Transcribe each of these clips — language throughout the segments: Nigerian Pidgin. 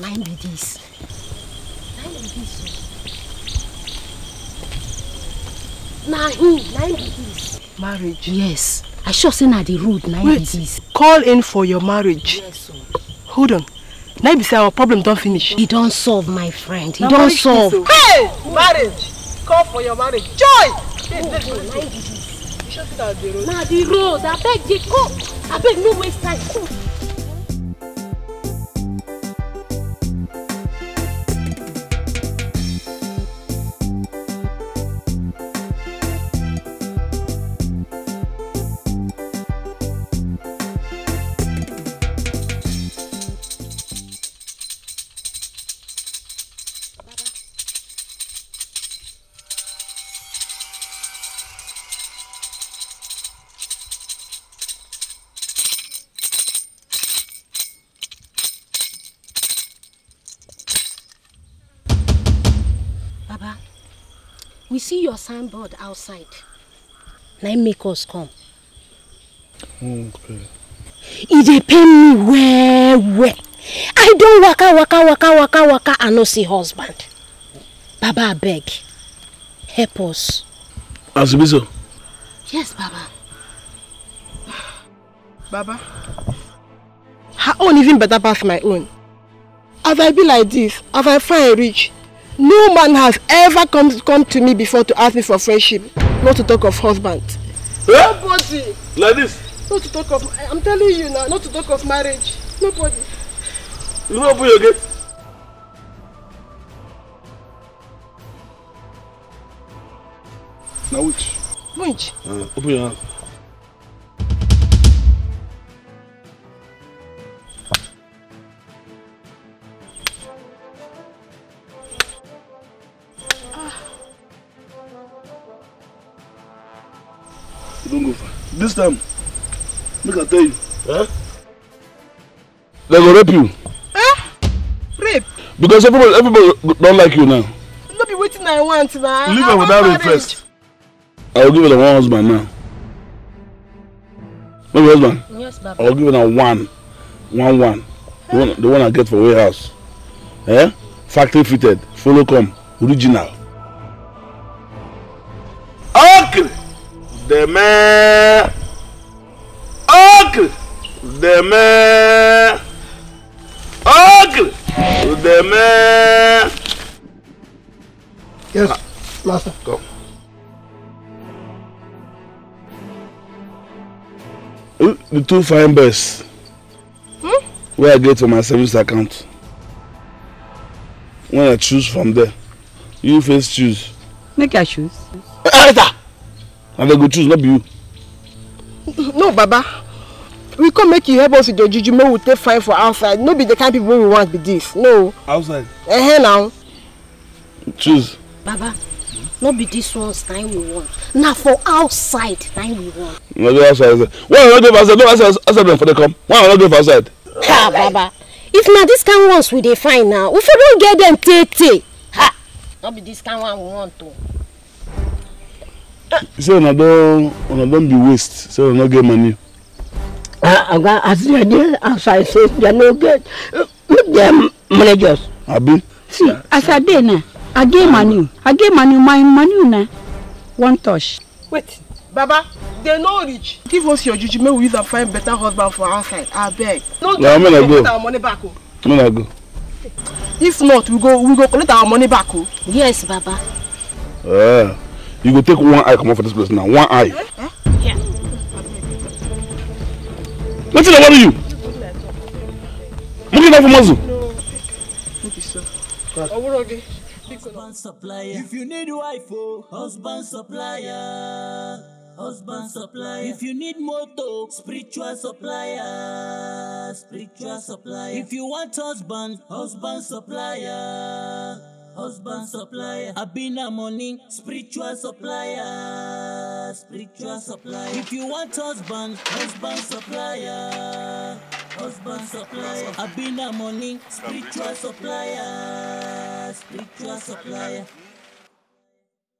now na im be dis na im be dis o na im na marriage. yes i sure say na the road na im be dis. wait call in for your marriage. yes sir. hold on na be say our problem don't finish. e don't solve my friend e don't solve. hey marriage call for your marriage joy. Oh, na the road abeg dey go beg no waste time. your signboard outside. Now make us come. Okay. It dey pain me well, well. I don't waka, waka, waka, waka, waka, and no see husband. Baba, I beg. Help us. Azubizo. Yes, Baba. Baba. Her own even better pass my own. As I be like this, as I find rich, No man has ever come, come to me before to ask me for friendship, not to talk of husband. Eh? Nobody. Like this? Not to talk of, I'm telling you now, not to talk of marriage. Nobody. You know open again. Now which? Which? Uh, open your hand. Don't go far. This time, make I tell you. Huh? They go rape you. Huh? Eh? Rape? Because everybody, everybody don't like you now. No be waiting. I want man. Leave her without rape first. I will give her one husband now. No be husband? Yes, Baba. I will give her one. One, one. The one, the one I get for warehouse. Eh? Factory fitted. Follow come. Original. The man ogres, des mers Ocle des mers. Yes, Last. master. Ah, the two fine birds. Hmm? Where I get to my service account. When I choose from there, you first choose. Make I choose. Either. na dem go choose not be you. no baba we come make you help us with your juju May we take fine for outside no be the kind people we want be this no. outside. ehe uh -huh, choose. baba no be this ones na we want Now for outside na we want. no be outside why are no go for outside no outside outside dem for dey come why are no go for outside. ha baba if not this kind ones we dey find now we don't get them, tey tey ha Not be this kind one we want o say una don una don be waste say una no get money. oga as they dey I say they no get make dem managers. abi. see as i dey na, i get money i get money my money na one touch. wait baba dey no reach. give us your juju make we use am find better husband for outside abeg. no do make we get our money back o. make i go. if not we go we go collect our money back o. Oh. yes baba. Uh. You go take one eye come out for this place now. One eye. Huh? Yeah. Nothing about you. Look at that for muzzle. If you need wife, oh. husband supplier. Husband supplier. If you need moto, spiritual supplier. Spiritual supplier. If you want husband, husband supplier husband supplier. I been a money spiritual supplier, spiritual supplier. If you want husband, husband supplier, husband supplier. I been a money spiritual supplier, spiritual supplier.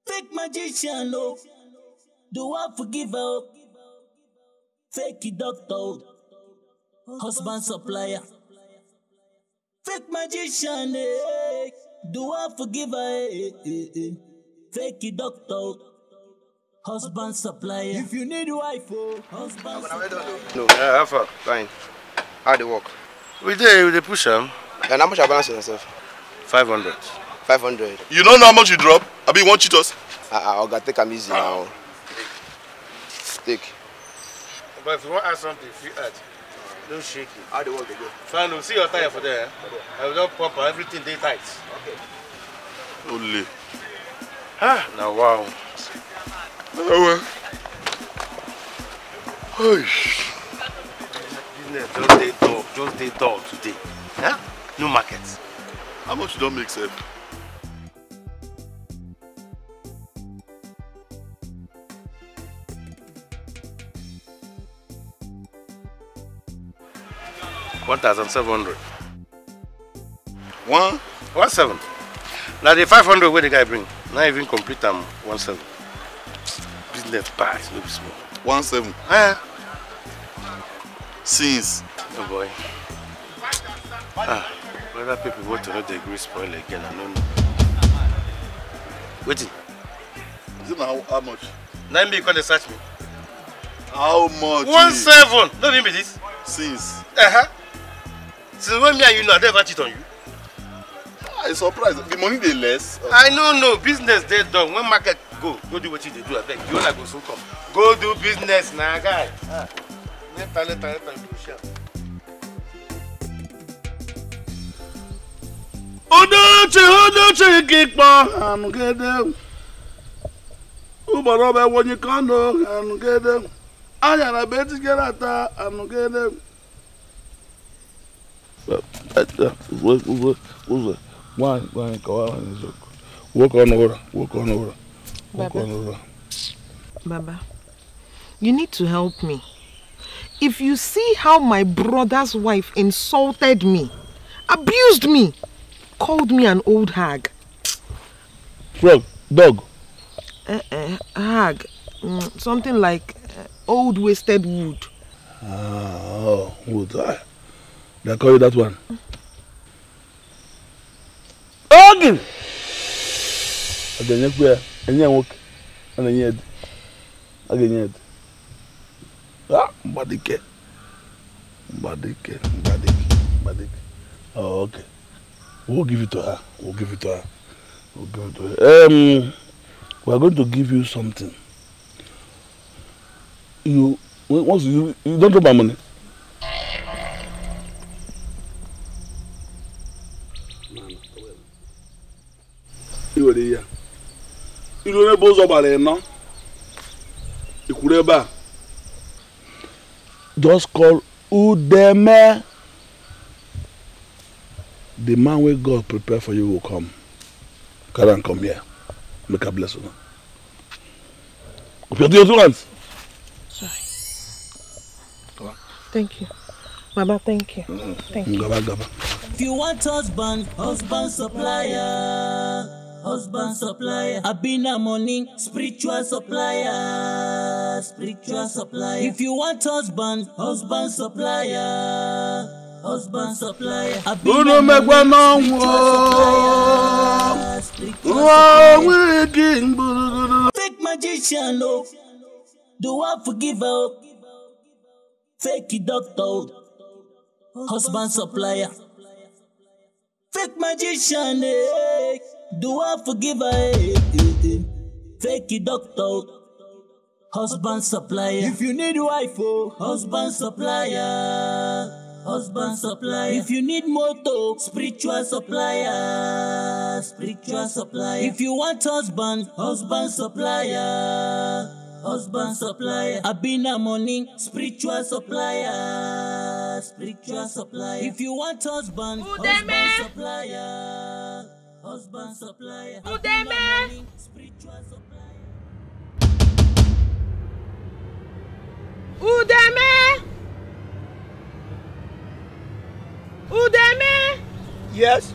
Fake magician, oh. do I forgive her? Fake doctor, oh. husband supplier. Fake magician, eh. Do I forgive her? Eh, eh, eh, eh. Fake it, doctor. Husband supplier. If you need wife, oh, husband No, I eh, have far? Fine. How they work? We dey, we dey push am. And how much I balance yourself? 500. 500. You don't know how much you drop? I mean, you won't cheat us. Uh, Oga, take am easy uh. now. Take. But if you want to add something, if you add, don't shake it. How the work they go? Fine, we'll oh, see your tire for there. Eh? I will just pop everything, they tight o le na wa o ẹwẹ business just dey dull just dey dull today huh? no market. how much you don make sef. one thousand seven hundred one one seven Now the five hundred wey the guy bring na even complete am one seven business bad no be small. one seven. Eh. since. no oh boy ah whether people want to know the gree spoil again i no know wetin. is it how, how much. Now him be come dey search me. how much. one seven no be this. since. Uh -huh. since when me and you know i don ever cheat on you. Ah, i surprise the money dey less. i no know business dey done when market go go do wetin you dey do abeg You owner go soon come go do business na guy ah later later later you go share. odoche odoche kikpọ anugede ụbọrọ bụ ewonye kano anugede anya na be etigere ata anugede. Uzwe, uzwe, uzwe. go Walk on over, walk on over, walk Baba. on over. Baba, you need to help me. If you see how my brother's wife insulted me, abused me, called me an old hag. Frog, dog. Uh, uh, hag, mm, something like uh, old wasted wood. Ah, oh, wood. Ah. They call you that one. Ogin. Aga nye kwa enye nwoke ana nye edi. Aga nye edi. Ah, Mbadike. Mbadike, Mbadike, Mbadike. Oh, okay. We'll give it to her. We'll give it to her. We'll give it to her. Um, we are going to give you something. You once you you don't know my money. ou de ihe iru onye just call udeme the man wey god prepare for you will come come here make i bless una Thank you. Mama, thank you. Mm-hmm. Thank you. If you want husband, husband supplier. husband supplier. I be na money, spiritual supplier, spiritual supplier. If you want husband, husband supplier, husband supplier. I be na money, spiritual supplier, spiritual supplier. Fake magician, oh, do I forgive her? Fake doctor, oh. husband supplier. Fake magician, eh. Do I forgive her? Eh, eh, eh, Fake it, doctor. Husband supplier. If you need wife, oh. Husband supplier. Husband supplier. If you need moto, spiritual supplier. Spiritual supplier. If you want husband, husband supplier. Husband supplier. Abina money, spiritual supplier. Spiritual supplier. If you want husband, husband supplier husband supplier. Today, man. Spiritual supplier. Udeme! Udeme! Yes.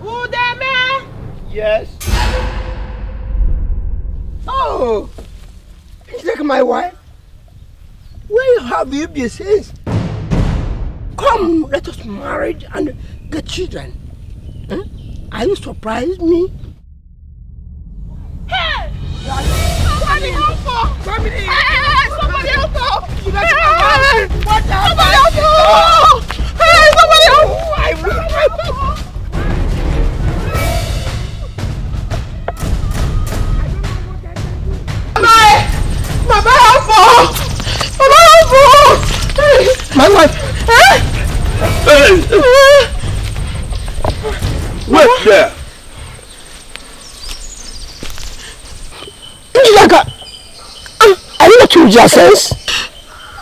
Udeme! Yes. Oh! It's like my wife. Where have you been since? Come, let us marry and get children. Hmm? Are you surprised me? Hey! Somebody help her! Somebody help her! Somebody help her! Hey! Somebody help her! I will help her! Mama help her! Mama help her! My wife! Eh? Wait there. Ah, Njaka, I need to change your sense.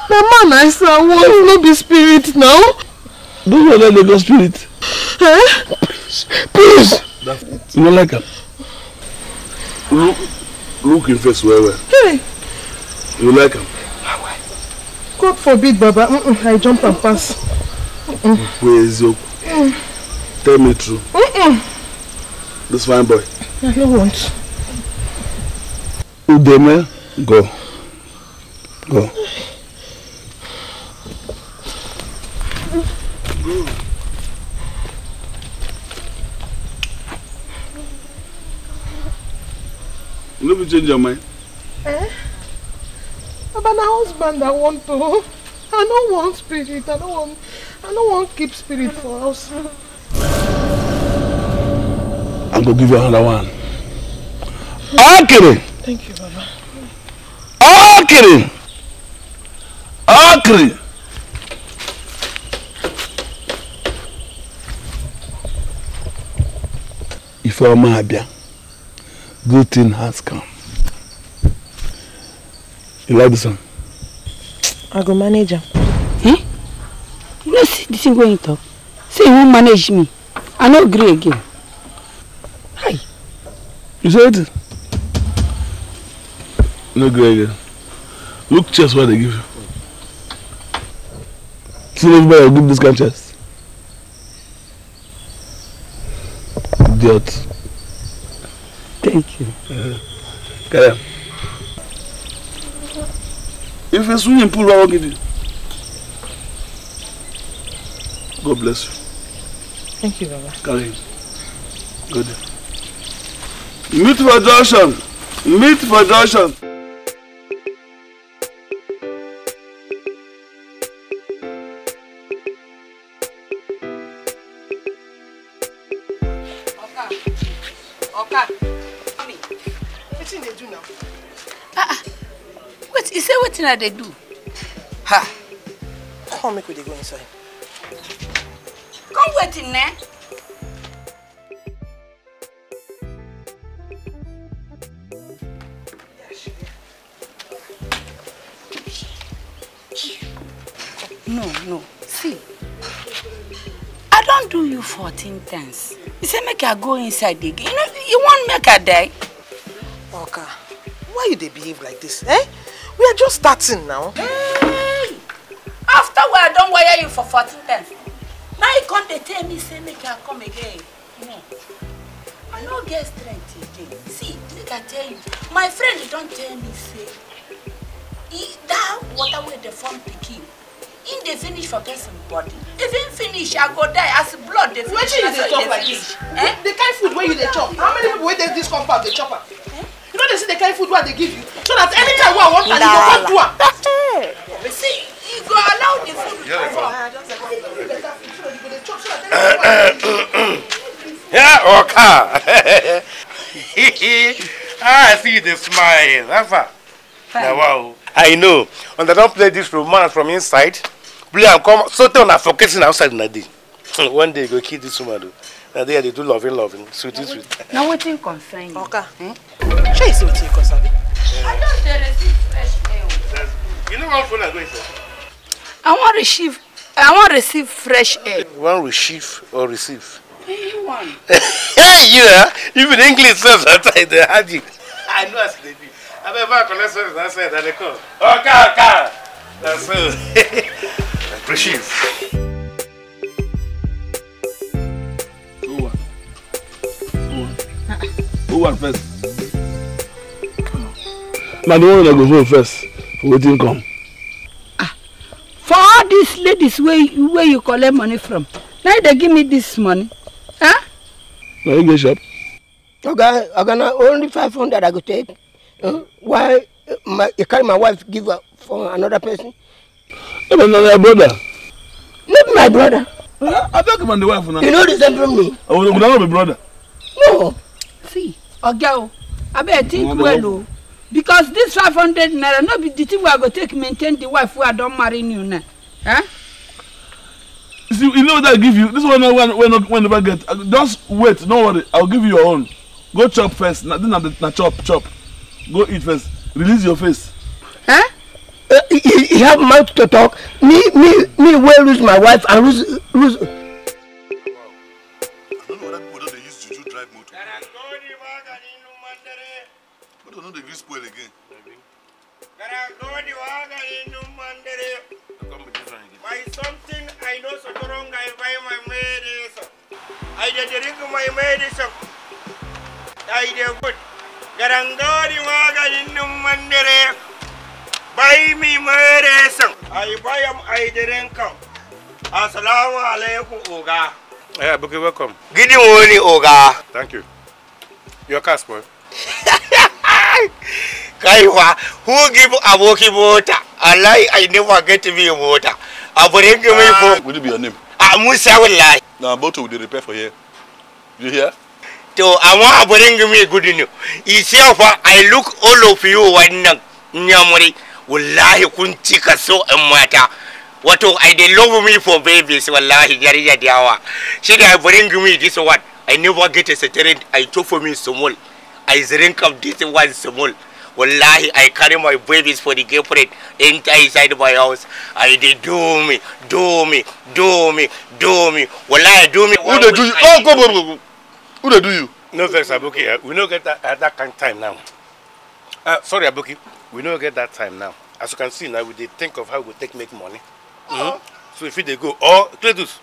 Na man I saw was no be spirit now. Do you know the ghost spirit? Eh? Please, please. That's... You like her. Look, look in face Where, where? Hey. You like him? God forbid, Baba. Mm -mm, I jump and pass. Mm Where is your... Mm. Tell me true. Mm-mm. This fine boy. I don't want. Udeme, go. Go. Go. You never change your mind? Eh? But my husband I want to. I don't want spirit. I don't want I don't want keep spirit for us. I'm gonna give you another one. Akiri. Thank you, Baba. If Akiri. Ifeoma Abia, good thing has come. You like this one? I go manager. am. Hmm? You no see the thing wey you talk? say you wan manage me i no gree again hi you say wetin no gree again look chest wey i dey give you see everybody go give this kind chest idiot thank you carry am if a swimming pool, i wan give you God bless you. Thank you, Baba. Karim. Good. Meet Meat production. Meat production. Wetin I dey do? Ha! Come make we dey go inside kweti nne no no see i don't do you 14 times you say make i go inside again you know you won't make i die oka why you they behave like this? eh we are just starting now hey! after we are done wire you for 14 times come they tell me say make i come again no i no get strength again see make i tell you my friend don't tell me say e that water wey the form pikin in dey finish forget somebody. body if im finish i go die as blood dey finish wetin you chop like this eh? the kind food where you dey chop how many people wait this compound The chopper. eh? you know they see the kind food where they give you so that anytime wey i want, carry you go come do But see you go allow the food to come yeah, or I see the smile. Rafa. Now, wow. I know. When they don't play this romance from inside. Play and come. So they are focusing outside na day. One day you go kill this woman though. Na they do loving, loving, sweetie, sweet. Now what thing concern you? Okay. Hmm? Sure, what you concern. I don't receive fresh mail. You know what phone I go inside? I want to receive I want to receive fresh air. You want receive or receive? Anyone. hey, you yeah. Even English says that I the magic. I know as they be. I bet my collection that said that they call. Okay, okay. That's so. receive. Who won? Who won? Who won first? Man, the one that goes first. Waiting come for all these ladies wey wey you collect money from na you dey give me this money huh? na you go shop. oga oga na only five hundred i go take uh, why uh, my, you carry my wife give her for another person. no be na oh, my brother. no be my brother. abeg man the wife na. you no resemble me. una no be brother. no see oga o abeg think well o because this five hundred naira no be the thing wey i go take maintain the wife wey i don marry new now huh? Eh? see you know what i give you this one wey wey no wey never get uh, just wait no worry i go give you your own go chop first na then na na chop chop go eat first release your face. Huh? Eh? Uh, he, he have mouth to talk me me me wey lose my wife and lose lose. But do the grease spoil again. By something I know so wrong, I buy my medicine. I drink my medicine. I do good. Garangari maganin mandere. Buy me medicine. I buy them, I drink them. Assalamu alaikum, Oga. Yeah, Buki, welcome. Good morning, Oga. Thank you. Your car spoil. kai kaiwa who give aboki mota wallahi i never get me a mota i bring me for ah, would be your name ah musa wallahi na motor will repair for here you hear to amma i bring me good news you see fa i look all of you wannan nyamuri wallahi kun cika so in mata wato i dey love me for babies wallahi yariya dawa shi da i bring me this one i never get a certain i took for me small so I drink of this one small. Wallahi, I carry my babies for the girlfriend inside my house. I they do me, do me, do me, do me. Wallahi, do me. Who they do you? Oh, go, go, go. Who they do you? No, thanks, Abuki. Eh, we don't get that that kind of time now. Uh, sorry, Abuki. We don't get that time now. As you can see now, we they think of how we take make money. Mm -hmm. So if they go, oh, Cledus,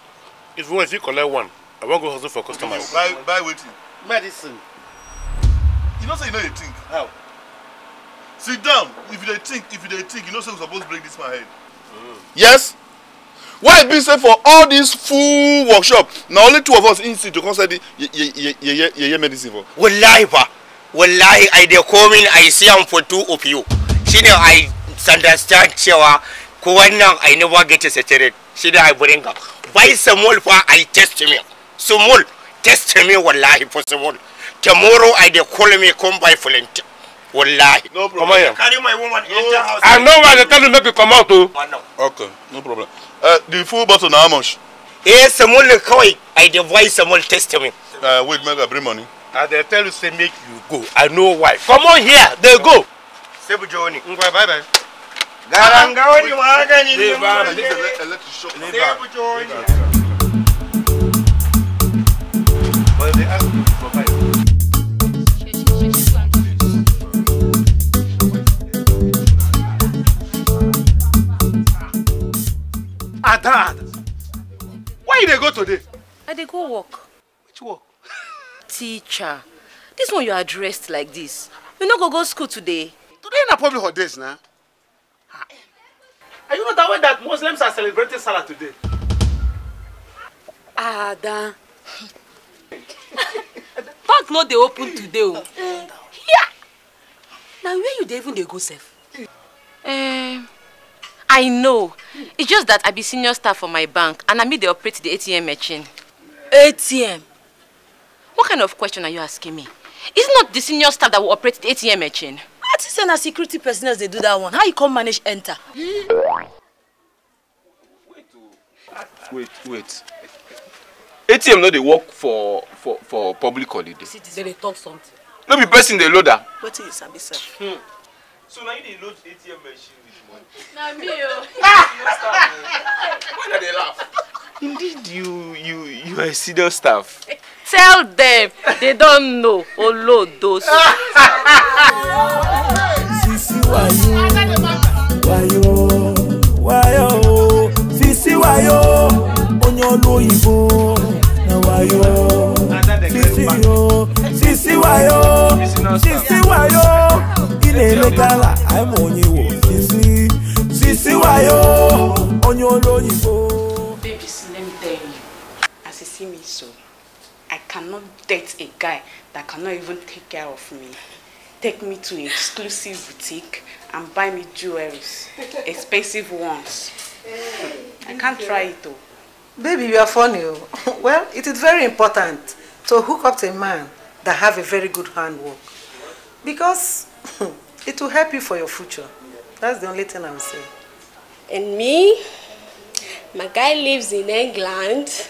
if you want, if you collect one, I won't go hustle for customers. Buy, buy waiting. Medicine. you know say you know you think how sit down if you dey think if you dey think you know say we suppose break this man head mm. yes why e be say for all this full workshop na only two of us inside to come sell the yeye yeye medicine for. wallahi fa wallahi i dey come in i see am for two of you shine i understand cewa ko wannan i never get a saturated shine i bring am buy small fa i test me small test me wallahi for small Tomorrow I dey call me come by volunteer. Wallahi. No problem. here. Carry my woman enter house. I know why they tell you make you come out too. Okay, no problem. Uh, the full bottle na how much? Eh, small kawai. I dey voice small me. Uh, wait, make I bring money. I dey tell you say make you go. I know why. Come on here. Dey go. Sebu Joni. Ngwa bye bye. Garanga wani magani. Leave her. Leave her. Sebu Joni. ada where you they go today. i dey go work. which work. teacher this one you are dressed like this you no go go school today. today na public holidays na. Are you not that way that muslims are celebrating salah today. ada bank not they open today o. here na where you dey even they go safe? Eh, um, I know. It's just that I be senior staff for my bank and I meet they operate the ATM machine. ATM? What kind of question are you asking me? It's not the senior staff that will operate the ATM machine. What is saying security personnel they do that one? How you come manage enter? Wait, wait. ATM no they work for for for public holiday. See, they talk something. No be person dey load am. Wetin you sir? Hmm so now you need load atm machine with money. na me oh. why na they laugh. indeed you you you are a senior staff. tell them, they don't know olodo. Ah! sisi wayo wayo wayo sisi wayo onye olu oyibo na wayo sisi yo sisi wayo sisi wayo na-emetala anyị ma onye wo sisi sisi wayo onye olu oyibo me so. I cannot date a guy that cannot even take care of me. Take me to an exclusive boutique and buy me jewelries, expensive ones. I can't try it though. Baby, you are funny. Oh. well, it is very important to hook up to a man that have a very good handwork. Because It will help you for your future. That's the only thing I'm saying. And me? My guy lives in England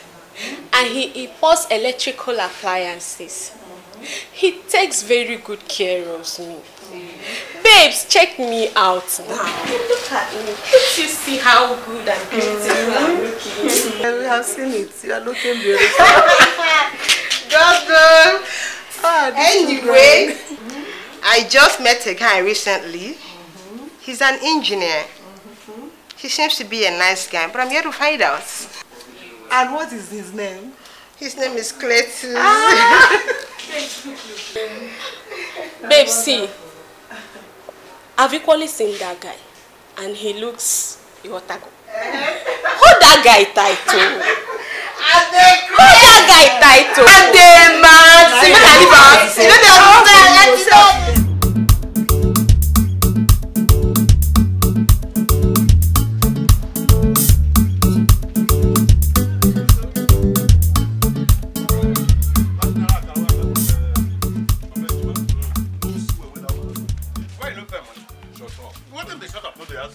and he imports electrical appliances. He takes very good care of me. Babes, check me out now. Look at me. Can't you see how good and beautiful I'm mm-hmm. looking? Yeah, we have seen it. You are looking beautiful. Just Ah, anyway. I just met a guy recently. Mm -hmm. He's an engineer. Mm -hmm. He seems to be a nice guy, but I'm here to find out. And what is his name? His name is Cletus. Ah! Babe, see, I've equally seen that guy, and he looks your taco. hold that guy tight o oh. hold that guy tight o. adema ti mi na liba you no dey understand ẹ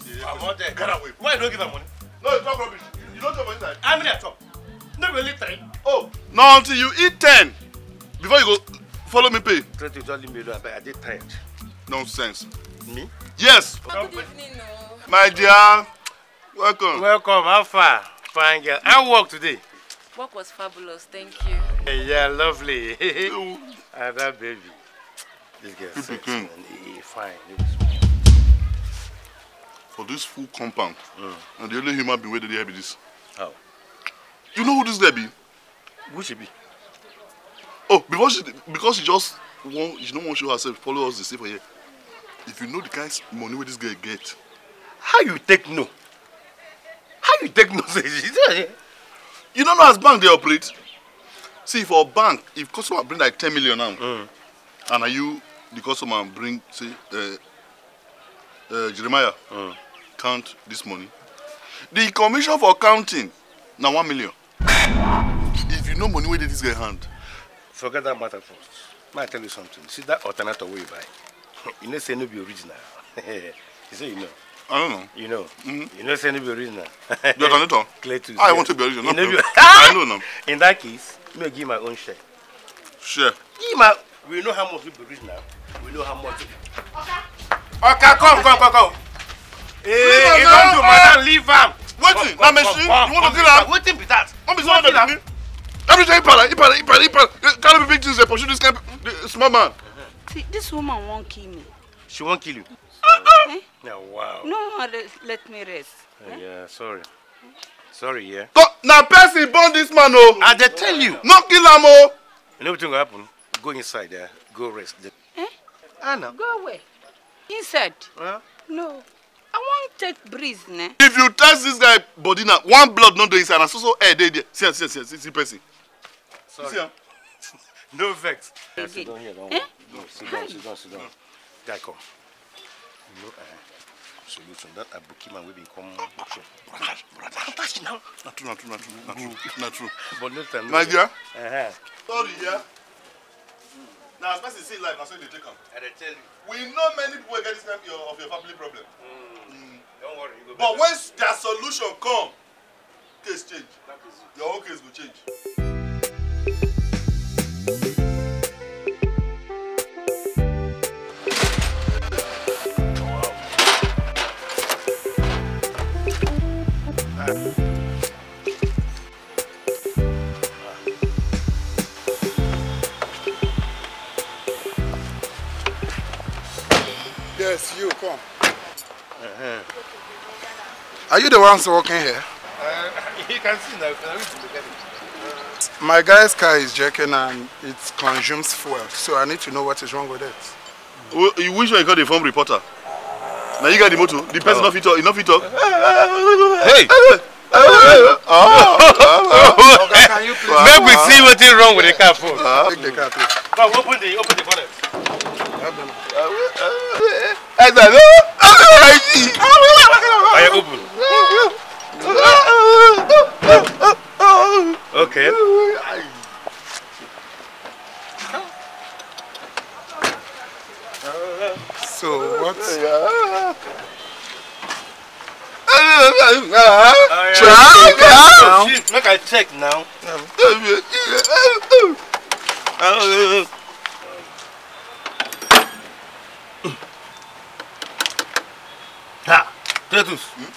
ti don. Why don't you don't give her money? talk rubbish. You, don't chop inside. How many I chop? No really three. Oh. Na until you eat ten before you go follow me pay. Thirty to just leave me alone abeg I dey tired. Nonsense. Me? Yes. good evening o. My dear welcome. Welcome how far? Fine girl. How work today? Work was fabulous thank you. Hey, yeah lovely. Have that baby. This girl sexy mm-hmm. and fine for this full compound. Mm. And the only human being where dey there be this. How? You know who this girl be? Who she be? Oh, because she because she just wan she no wan show herself follow us The stay for here. If you know the kind of money where this girl get. How you take no? How you take no? Eh. You don't know as bank they operate? See for bank if customer bring like ten million now. Mm. And are you the customer bring say uh, uh, Jeremiah uh. count this money. The commission for counting na one million. if you know money wey dey this guy hand. Forget that matter first. May I tell you something? See that alternator wey you buy? you know say no be original. you say you know. I don't know. You know. Mm-hmm. You know say no be original. the alternator? Clear to ah, I want to be original. You know, I know now. In that case, me give my own share. Share? Give my... We know how much we be original. We know how much... Okay ọkà come come come come. ee e don do madam eh. leave am. wetin na machine you want to kill am. wetin be that. no be small baby. everything ipala ipala ipala Can't be big things dey pursue this kind small man. See, this woman won't kill me. She won't kill you. Uh-uh. Eh? eh? Yeah, wow. No, uh, let, me rest. Oh, eh? Yeah, sorry. Sorry, yeah. now person born this man, oh. I dey tell you. No kill him, oh. You know what's going to happen? Go inside there. go rest. Eh? Anna. Go away inside. Huh? No. I wan take breeze ne. If you touch this guy body now, one blood not dey inside na so so air eh, dey there. See am see am see am see Sorry. See am. no vex. Yeah, sit down here. Don't eh? no, sit down sit down sit down. Guy come. No. uh, solution that abuki man will become. come show. Brother brother. Attach now. Na true na true na true na true But no time. My dear. Uh -huh. Sorry yeah. Now, as person see life, na so they take am. I dey tell you. We know many people get this kind of your family problem. Mm. Mm. Don't worry, you go But when their solution come, case change. Your own case will change. Wow. Uh, you, come. Uh -huh. Are you the ones walking here? Uh, you can see now. My guy's car is jerking and it consumes fuel, so I need to know what is wrong with it. Well, you wish I got a phone reporter. Now you got the motor. The person oh. not fit talk. enough fit talk. Hey. Oh, oh, okay, can you please? Make we see what is wrong with the car phone. Ah. Take the car, please. Come, open the open the bonnet. I said, no, I see. I open. Okay. So what? Triangle. Make I check now. Tretus, hmm?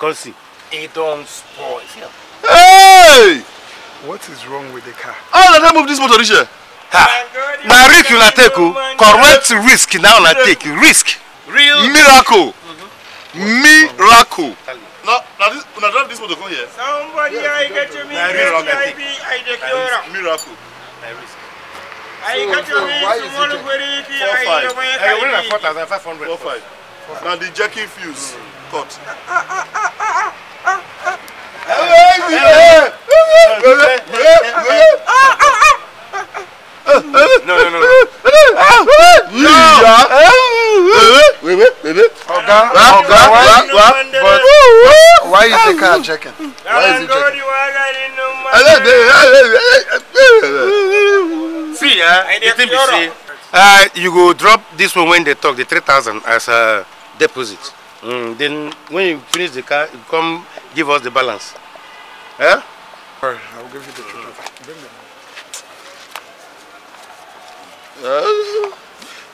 come see. It don't spoil. Hey! What is wrong with the car? How did I move this motor this Ha! Now risk you take, you. Oh. correct risk now na take, risk. Real miracle. Mm-hmm. Miracle. No, now this, now drive this motor come here. Somebody yeah, I get you me, I be, I declare. Miracle. Na risk. I got your means tomorrow very easy. Four five. I got four thousand five hundred. Four five. Now the jerking fuse. Mm. court. No, no, no, no. No! Ọ̀gá, ọ̀gá, wá, why you think I'm checking? Why is he checking? See, uh, the thing be say, uh, you go drop this one when they talk, the 3,000 as a deposit. Mm, then when you finish the car, you come give us the balance. Eh? Alright, I'll give you the children. Bring the Uh,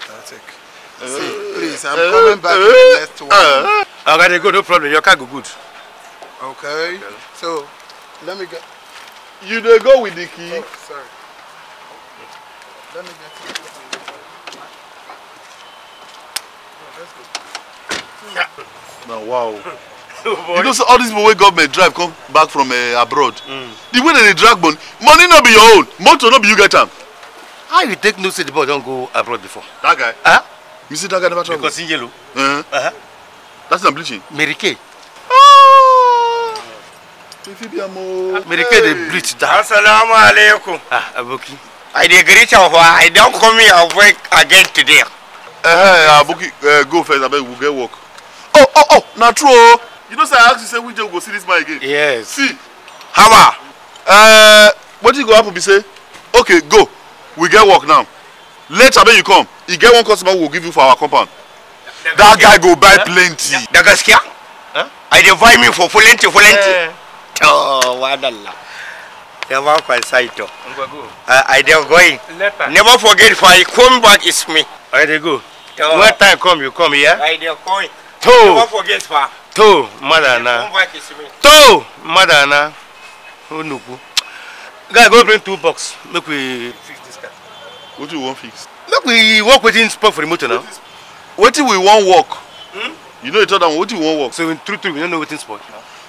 That's it. See, please, I'm eh? coming back uh, eh? the next one. Uh, ah, already good, no problem. Your car go good. Okay. okay. So, let me get... You don't go with the key. Oh, sorry. Let me get... Now wow you know say all these people wey government drive come back from uh, abroad mm. the way they dey drag money money no be your own motor no be you get am. how you take know say the boy don go abroad before. that guy -huh? you see that guy never travel. because he yellow. Uh -huh. Uh -huh. that's na bleaching. mary kay. Ah! Ifibiamo. Mary Kay dey bleach down. Assalamu Ah, Aboki. I dey greet you for I don come here work again today. Eh, uh, Aboki, uh, go first abeg we get work oh oh oh na true o oh. you know say i ask you say which day we go see this man again. yes see hammer uh, wetin go happen be say okay go we get work now later when you come e get one customer we go give you for our compound that guy go buy eh? plenty. da Huh? Eh? i dey buy me for plenty plenty. to eh. oh, wadalla never consider oh. to i dey going never forget if i come back it's me. i dey go. When time come you come here. i dey going to to madana to madana onukwu guy go bring two box make we fix this car what do you want fix make we work wetin spoil for the motor now wetin we wan work hmm? you know the third one wetin we wan work so in true true we no know wetin spoil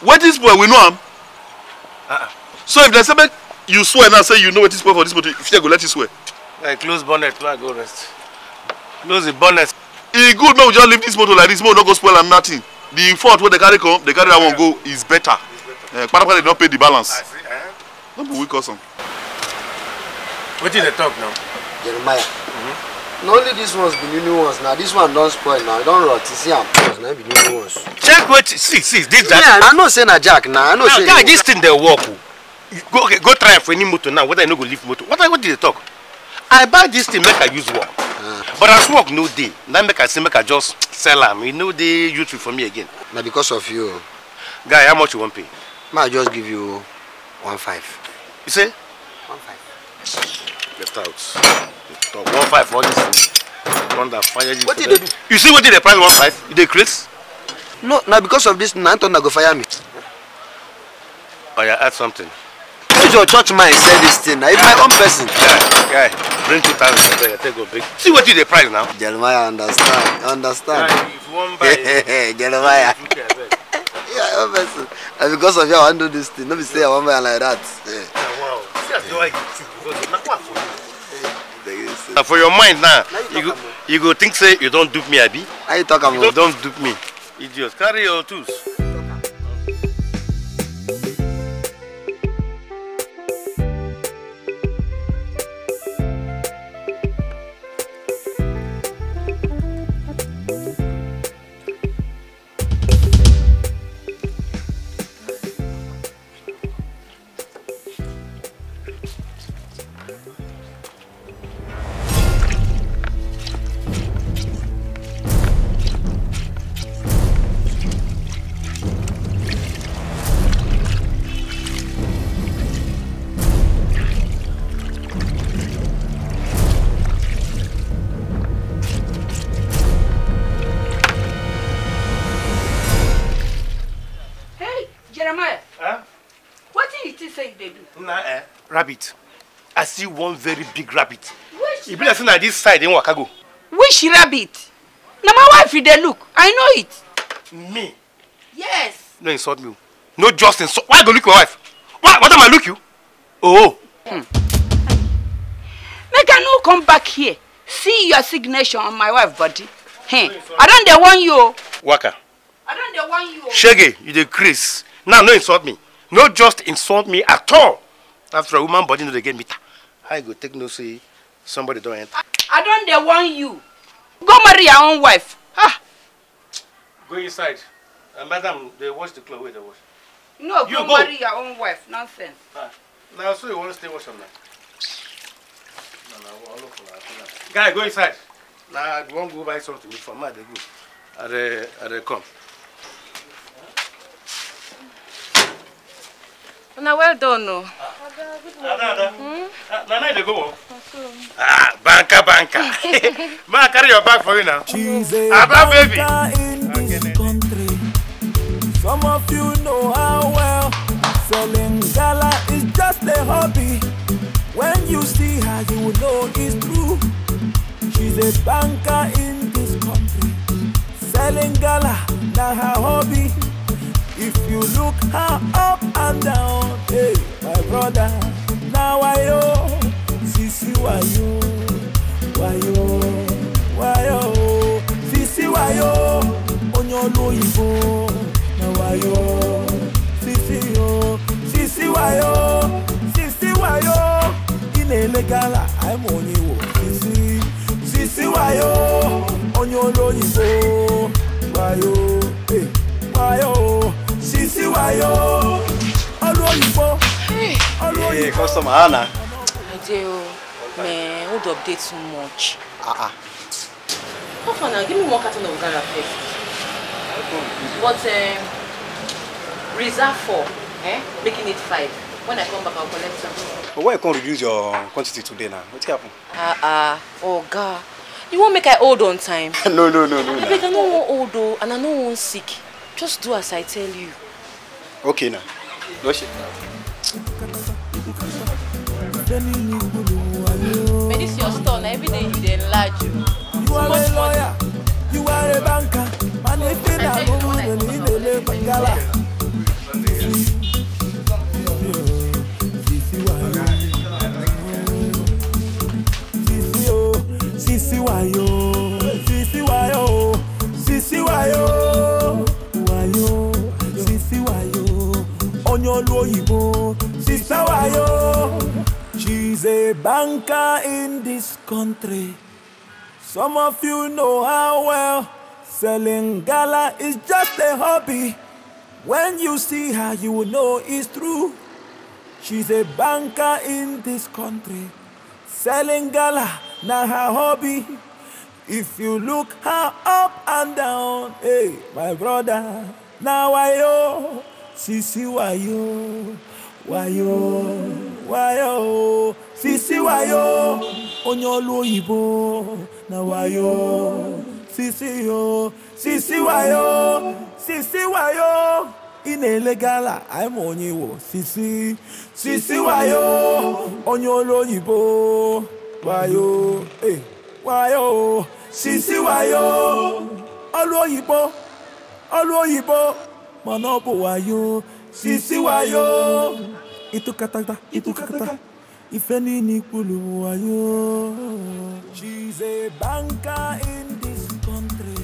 wetin spoil we know am uh uh-uh. so if dem say make you swear now say you know wetin spoil for dis motor you go let you swear. Hey, close bonnet make i go rest close the bonnet e good make we just leave this motor like this make we no go spoil am nothing the fault wey dey carry come dey carry that one go is better kpatakpata eh, dey don pay the balance no be we cause am. wetin dey talk now. jeremiah mm -hmm. na only dis ones be new new ones na this one don spoil now e don rot you see am pause na be new new ones. check wetin see see this. that. yeah i know say na jack na i know say. now guy dis thing dey work o oh. go okay, go try am for any motor now whether you no go leave motor what i what did they talk i buy this thing make i use work but as work no dey na make i say make i just sell am e no dey useful for me again. na because of you. guy how much you wan pay. ma i just give you one five. you say. one five. Get out talk one five for all this thing thunder fire you. wetin you dey do. you see wetin dey price one five you dey create. no na because of this na I go fire me. oya oh, add something. use your church mind sell this thing na if my own person. guy guy bring two thousand there, take go big. See what you the price now. Jeremiah understand, understand. if one buy, Jeremiah. yeah, obviously. And because of you, I want to do this thing. Let me say I want buy like that. Yeah. Yeah, wow. See, that's why you because not what for you? Now for your mind now, now you, you, go, you go think say you don't dupe me, Abi. How you talk about? You don't dupe me. Idiot, carry your tools. rabbit i see one very big rabbit You be like say this side im waka go. which rabbit Now my wife is there. look i know it. me. yes. no insult me no just insult why go look my wife why what am i look you. oh. Hmm. make i no come back here see your signature on my wife body. Hey, i don't dey warn you o. waka. i don't dey warn you o. shege you dey craze now no insult me no just insult me at all after all woman body no dey get meter how you go take know say somebody don enter. i don dey warn you go marry your own wife. Ah. go inside uh, madam dey wash the cloth wey dey wash. no you go, go marry your own wife nonsense. Ah. na so you wan stay wash am na. guy go inside. na i wan go buy something for ma dey go i dey i dey come. Una well done o. Ada, Ada. Nana, hmm? you go. Ah, banker, banker. Ma, carry your bag for you now. Aba, baby. Some of you know how well selling gala is just a hobby. When you see her, you will know it's true. She's a banker in this country. Selling gala, not her hobby. If you look her up and down, hey, my brother, now I know, Sisi Wayo, Wayo, Wayo, Sisi Wayo, Onyolo Ibo, now Wayo, Sisi Yo, Sisi Wayo, Sisi Wayo, Inelegala, I'm on you, Sisi, Sisi Wayo, Onyolo Ibo, Wayo, hey, Wayo, wayo ọlú òyìnbó ọlú òyìnbó. ee customer ana. Adeo man hold up dey too much. Ah ah. How far now? Give me one carton of Ghana first. But um, reserve for. eh? making it five. When I come back, I'll collect some. But why you can't reduce your quantity today now? What's happened? Ah, uh, ah, uh, oh, God. You won't make I hold on time. no, no, no, no. I beg, I no wan old, on, and I no wan sick. Just do as I tell you okay na lọ ṣe. but this your store na every day you dey enlarge o. you are a lawyer you are a banker and if you na go win the league dey bangala. Sisi wayo, oh. sisi wayo, oh. sisi wayo. Oh. onye olu oyibo she's a banker in this country some of you know how well selling gala is just a hobby when you see her you will know it's true she's a banker in this country selling gala na her hobby if you look her up and down hey my brother now i know Sisi wayo, wayo, wayo, Sisi wayo, onyolo ibo, na wayo, Sisi yo, Sisi wayo, Sisi wayo, inele gala, I'm on you, Sisi, Sisi wayo, onyolo ibo, wayo, eh, wayo, Sisi wayo, olu oyibo, olu oyibo manobo wayo sisi wayo itukatata itukatata ifeni ni kulu wayo. she's a banker in this country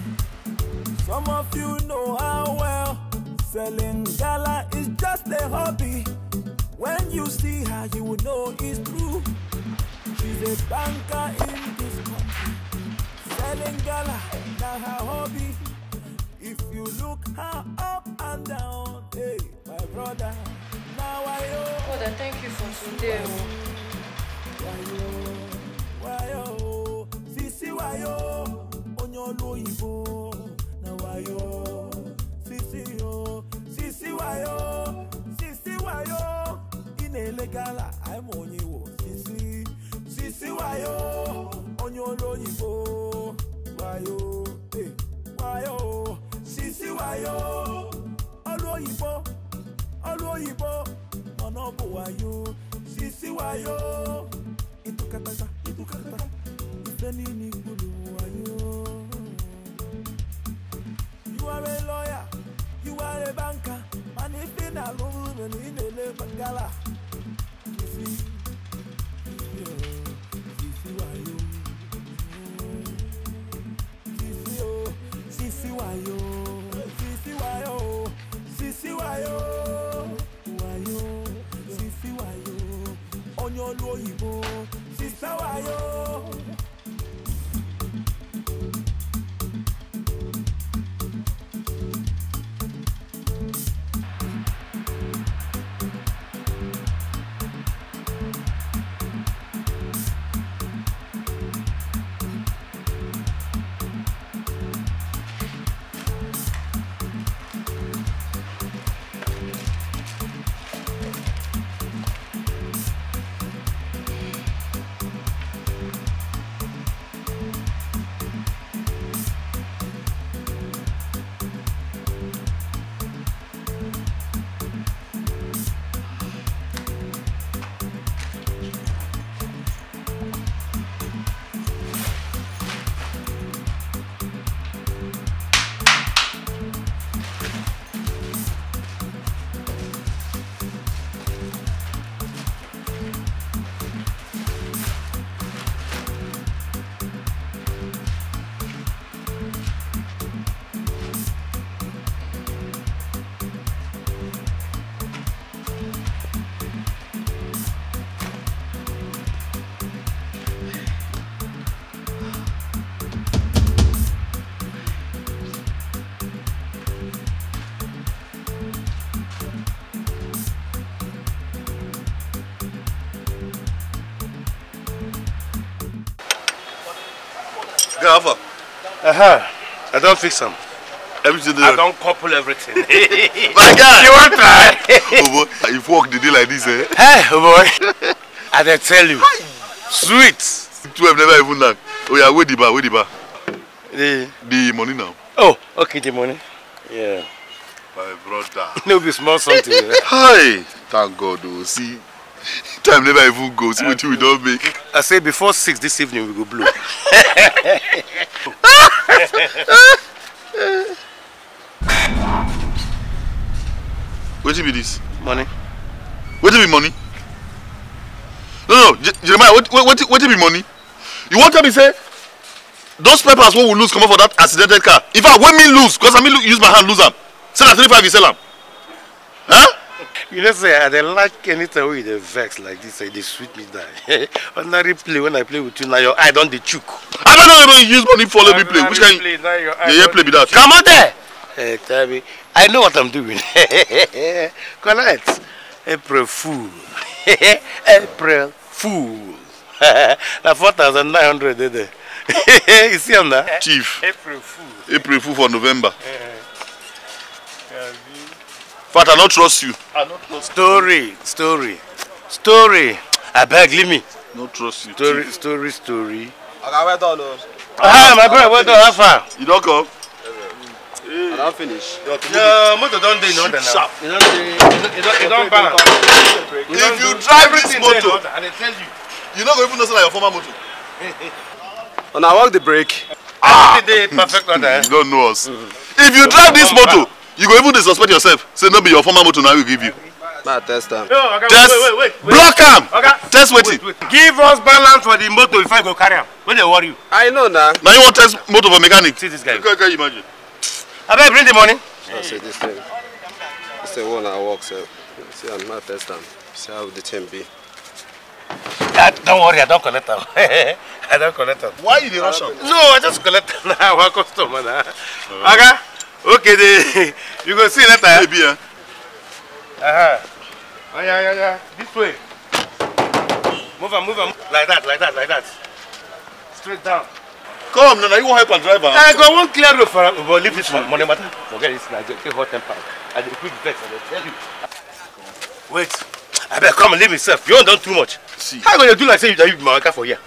some of you know her well selling gala is just a hobby when you see her you will know it's true she's a banker in this country selling gala na her hobby look her up and down. Hey, my brother, now I know. Brother, thank you for today. Wayo, oh. wayo, sisi wayo, onyolo ibo, na wayo, sisi yo, sisi wayo, sisi wayo, inelegala, I'm onyiwo, sisi, sisi wayo, onyolo ibo, wayo, hey, wayo. Sisi Sisiwayo ọlú òyìnbó ọlú òyìnbó ọ̀nà bòwáyò Sisiwayo ìtúkàtàkà ìtúkàtàkà ìfẹ́ ní ní gbòdò wáyò. You are a lawyer, you are a banker, and if you na lóru rẹ̀ ní ìdílé gbàgálà. Sisiwayo. Sisiwayo. Oh, wayo wayo sisi wayo onye olu oyibo sisa wayo. Uh-huh. I don't fix them. Everything I don't couple everything. My God. You want try? oh boy, you walk the day like this, eh? Hey, oh boy. I didn't tell you. Sweet. Two have never even knocked. Oh yeah, where the bar, Where the bar. The, the money now. Oh, okay, the money. Yeah. My brother. no be small something. Right? Eh? Hi. Thank God, oh, see. Time never even go. See what we don't make. I say before six this evening we go blow wetin be dis money wetin be money no no jeremiah wetin be money you wan tell me say those papers wey we lose comot for that accidented car in fact wey me lose because i me use my hand lose am say na three five you sell am huh? You know, say, I don't like anything with the vex like this, say, they sweet me down. Ordinary play, when I play with you, now your eye don't the chook. I don't know you use money follow me play. Which kind? Play, yeah, yeah, play with that. Come on there! Hey, tell me, I know what I'm doing. Correct. April fool. April fool. now four 4,900, did they? you see him now? Chief. April fool. April fool for November. Eh, eh. But I don't trust you. I don't trust story, you. Story, story, I beg, leave me. No trust you. Story, too. story, story. Okay, wait on. Ah, my brother, where on. How far? You don't come. Hey. I don't finish. No, motor don't do in order now. Ah! You don't do. You don't. You don't balance. You don't if you drive this motor, and I tell you, you no go even know say na your former motor. Una walk the brake. Ah, dey perfect order. You don't know us. If you drive this motor you go even dey suspect yourself say no be your former motor na we give you. na test am. test block am test wetin. give us balance for the motor before you go carry am wey dey worry you. i know na. na you wan test motor for mechanic. see this guy. you can imagine. abeg bring the money. na say this thing this thing wey una work sef see am na test am see how the thing be. Ah, don't worry, I don't collect them. I don't collect them. Why you dey rush No, I just collect them now. a customer now. Okay. Okay, they, you go see later. Maybe, yeah. Uh-huh. Oh, yeah, yeah, yeah. This way. Move on, move on. Like that, like that, like that. Straight down. Come, Nana, you won't help a driver. I ah, go one clear road for but leave this one. Money matter. Forget this now. Get hot temper. I did a quick bet, I tell you. Wait. I better come and leave myself. You don't done too much. See. How are you gonna do like say you you be my worker for here?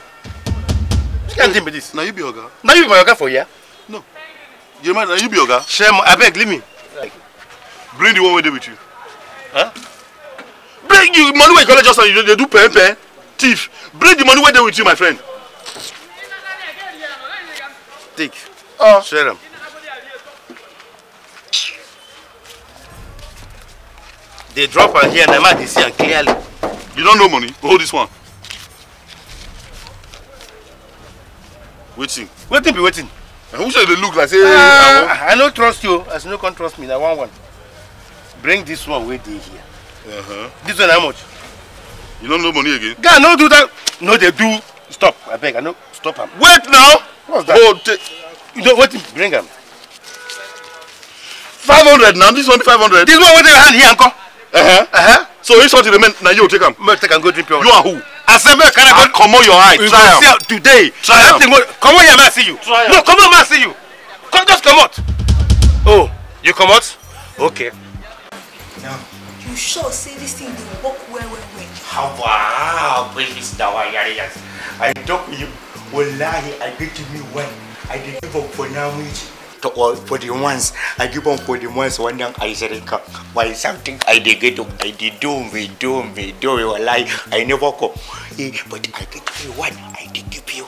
You can't deal with this. Now you be your girl. Now you be my worker for here. You Jeremiah, are you be oga? Shem, abeg, leave me. Bring the one wey dey with you. Huh? Bring you money where you it. just now, you they do pen pen. Thief, bring the money where they with you, my friend. Take. Oh. Share them. They drop am here, na man dey see am clearly. You don't know money? Hold this one. Wetin? Waiting. be waiting who say dey look like say. Uh, i no trust you as you no come trust me na one one bring this one wey dey here. Uh -huh. this one how much. you no know money again. guy no do that no dey do stop abeg i no stop am. wait now. what's that. you know wetin bring am. five hundred na this one five hundred. this one wey dey your hand here nko. Uh-huh. Uh-huh. So if something remain, now you take them. Must take and go drink pure water. You are who? Assemble can I ah, come on your eye. You try see out today. Try out. Come on here, man, see you. Try no, come on, man, see you. Come, just come out. Oh, you come out? Okay. Yeah. You sure say this thing dey work well, well, well? How ah, wow, baby, dawa ah, yari yari. I talk with you. Wallahi, I get to me when I dey give up for now, Michi. to for the ones I give them for the ones one young I said why something I did get I did do me do me do you lie I never go eh, but I give you one I did give you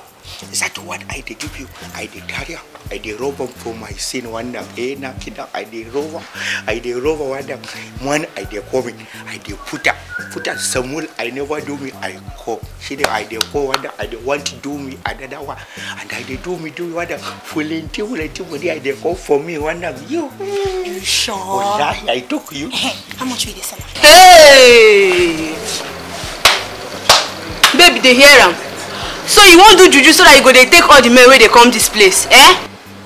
Is that what I did give you? I did carry up. I did rob for my sin one them. Eh, now kidnap. I did rob. I did rob one them. One I did coming. I did put up. Put up some wool. I never do me. I call. She did I did call one them. I did want to do me another one. And I did do me do one Full them. Fully until until I did call for me one them. You. You sure? Wallahi, I took you. How much will sell? Hey! Baby, they hear him. so you won't do juju so that you go They take all the men wey they come this place eh.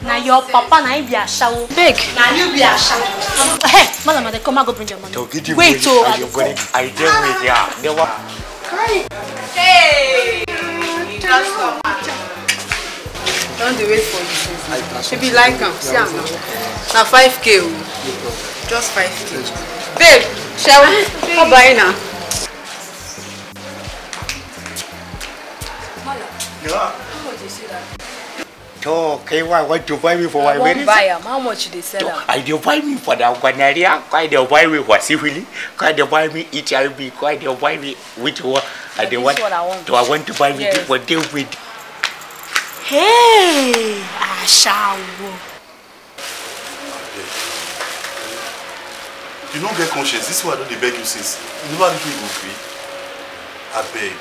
na your papa na him be shawo. beg na you be a shawo. hey eh, madam ade come and go bring your money. wait o i go come. i dey wait ya newa. hey you don stop don wait for you since she be like him. see him now Now 5k just 5k babe shall we come buy na. Yeah. How much why it? To buy me for my wedding? Buy am. How much they sell am? I dey buy me for the Guanaria. kai dey buy me for syphilis, kai dey buy me HIV, kai dey buy me which one? I dey want. Do I want to buy me for deal with? Hey, Ashawo. you no get conscience this one i don dey beg you since you never really even gree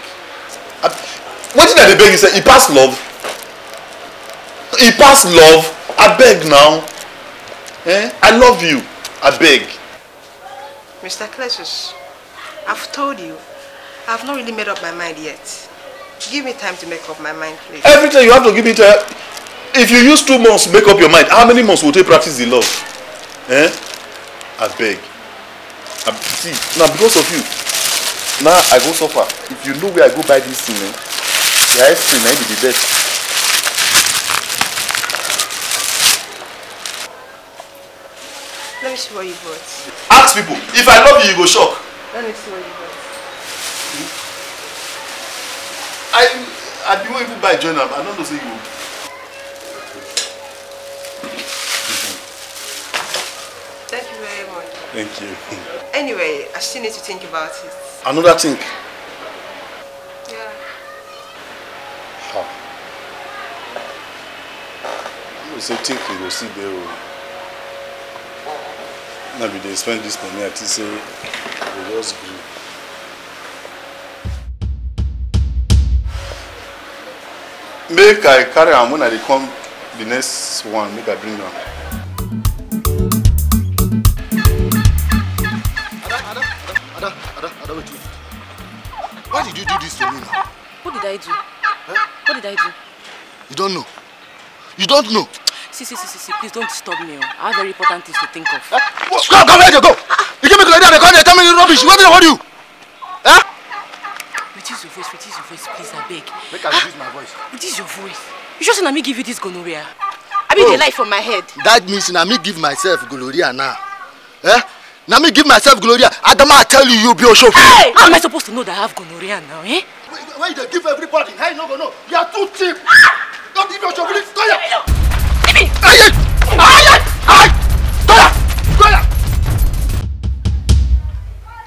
abeg wetin i dey beg you say e pass love e pass love abeg now eh i love you abeg. mr cletus i've told you i've not really made up my mind yet give me time to make up my mind please. everything you have to give me time if you use two months make up your mind how many months will take practice the love eh abeg see na because of you na i go suffer if you know where i go buy this thing eh The ice cream may be the best. Let me see what you bought. Ask people. If I love you, you go shock. Let me see what you bought. I I didn't even buy join I don't know say you. Thank you very much. Thank you. Anyway, I still need to think about it. Another thing. so take you go see there o na be dey spend this money i think say we go just gree. make i carry am when i dey come the next one make i bring am. Why did you do this to me now? Who did I do? Huh? What did I do? You don't know. You don't know. See, see, see, see, see, please don't disturb me. Oh. I have very important things to think of. Uh, go, come here, go. You give me like that, they come, they tell me rubbish. What did I want you? Huh? Eh? Reduce your voice, reduce your voice, please, I beg. Make I ah, reduce my voice. Reduce your voice. You just let me give you this gonorrhea. I mean, oh. the light from my head. That means na me give myself gonorrhea now. Eh? Na me give myself gonorrhea. Adama, I tell you, you be a Oshofu. Hey! How am I supposed to know that I have gonorrhea now, eh? Why you give everybody? How you no go You are too cheap. Ah! Don't give Oshofu. Stop it.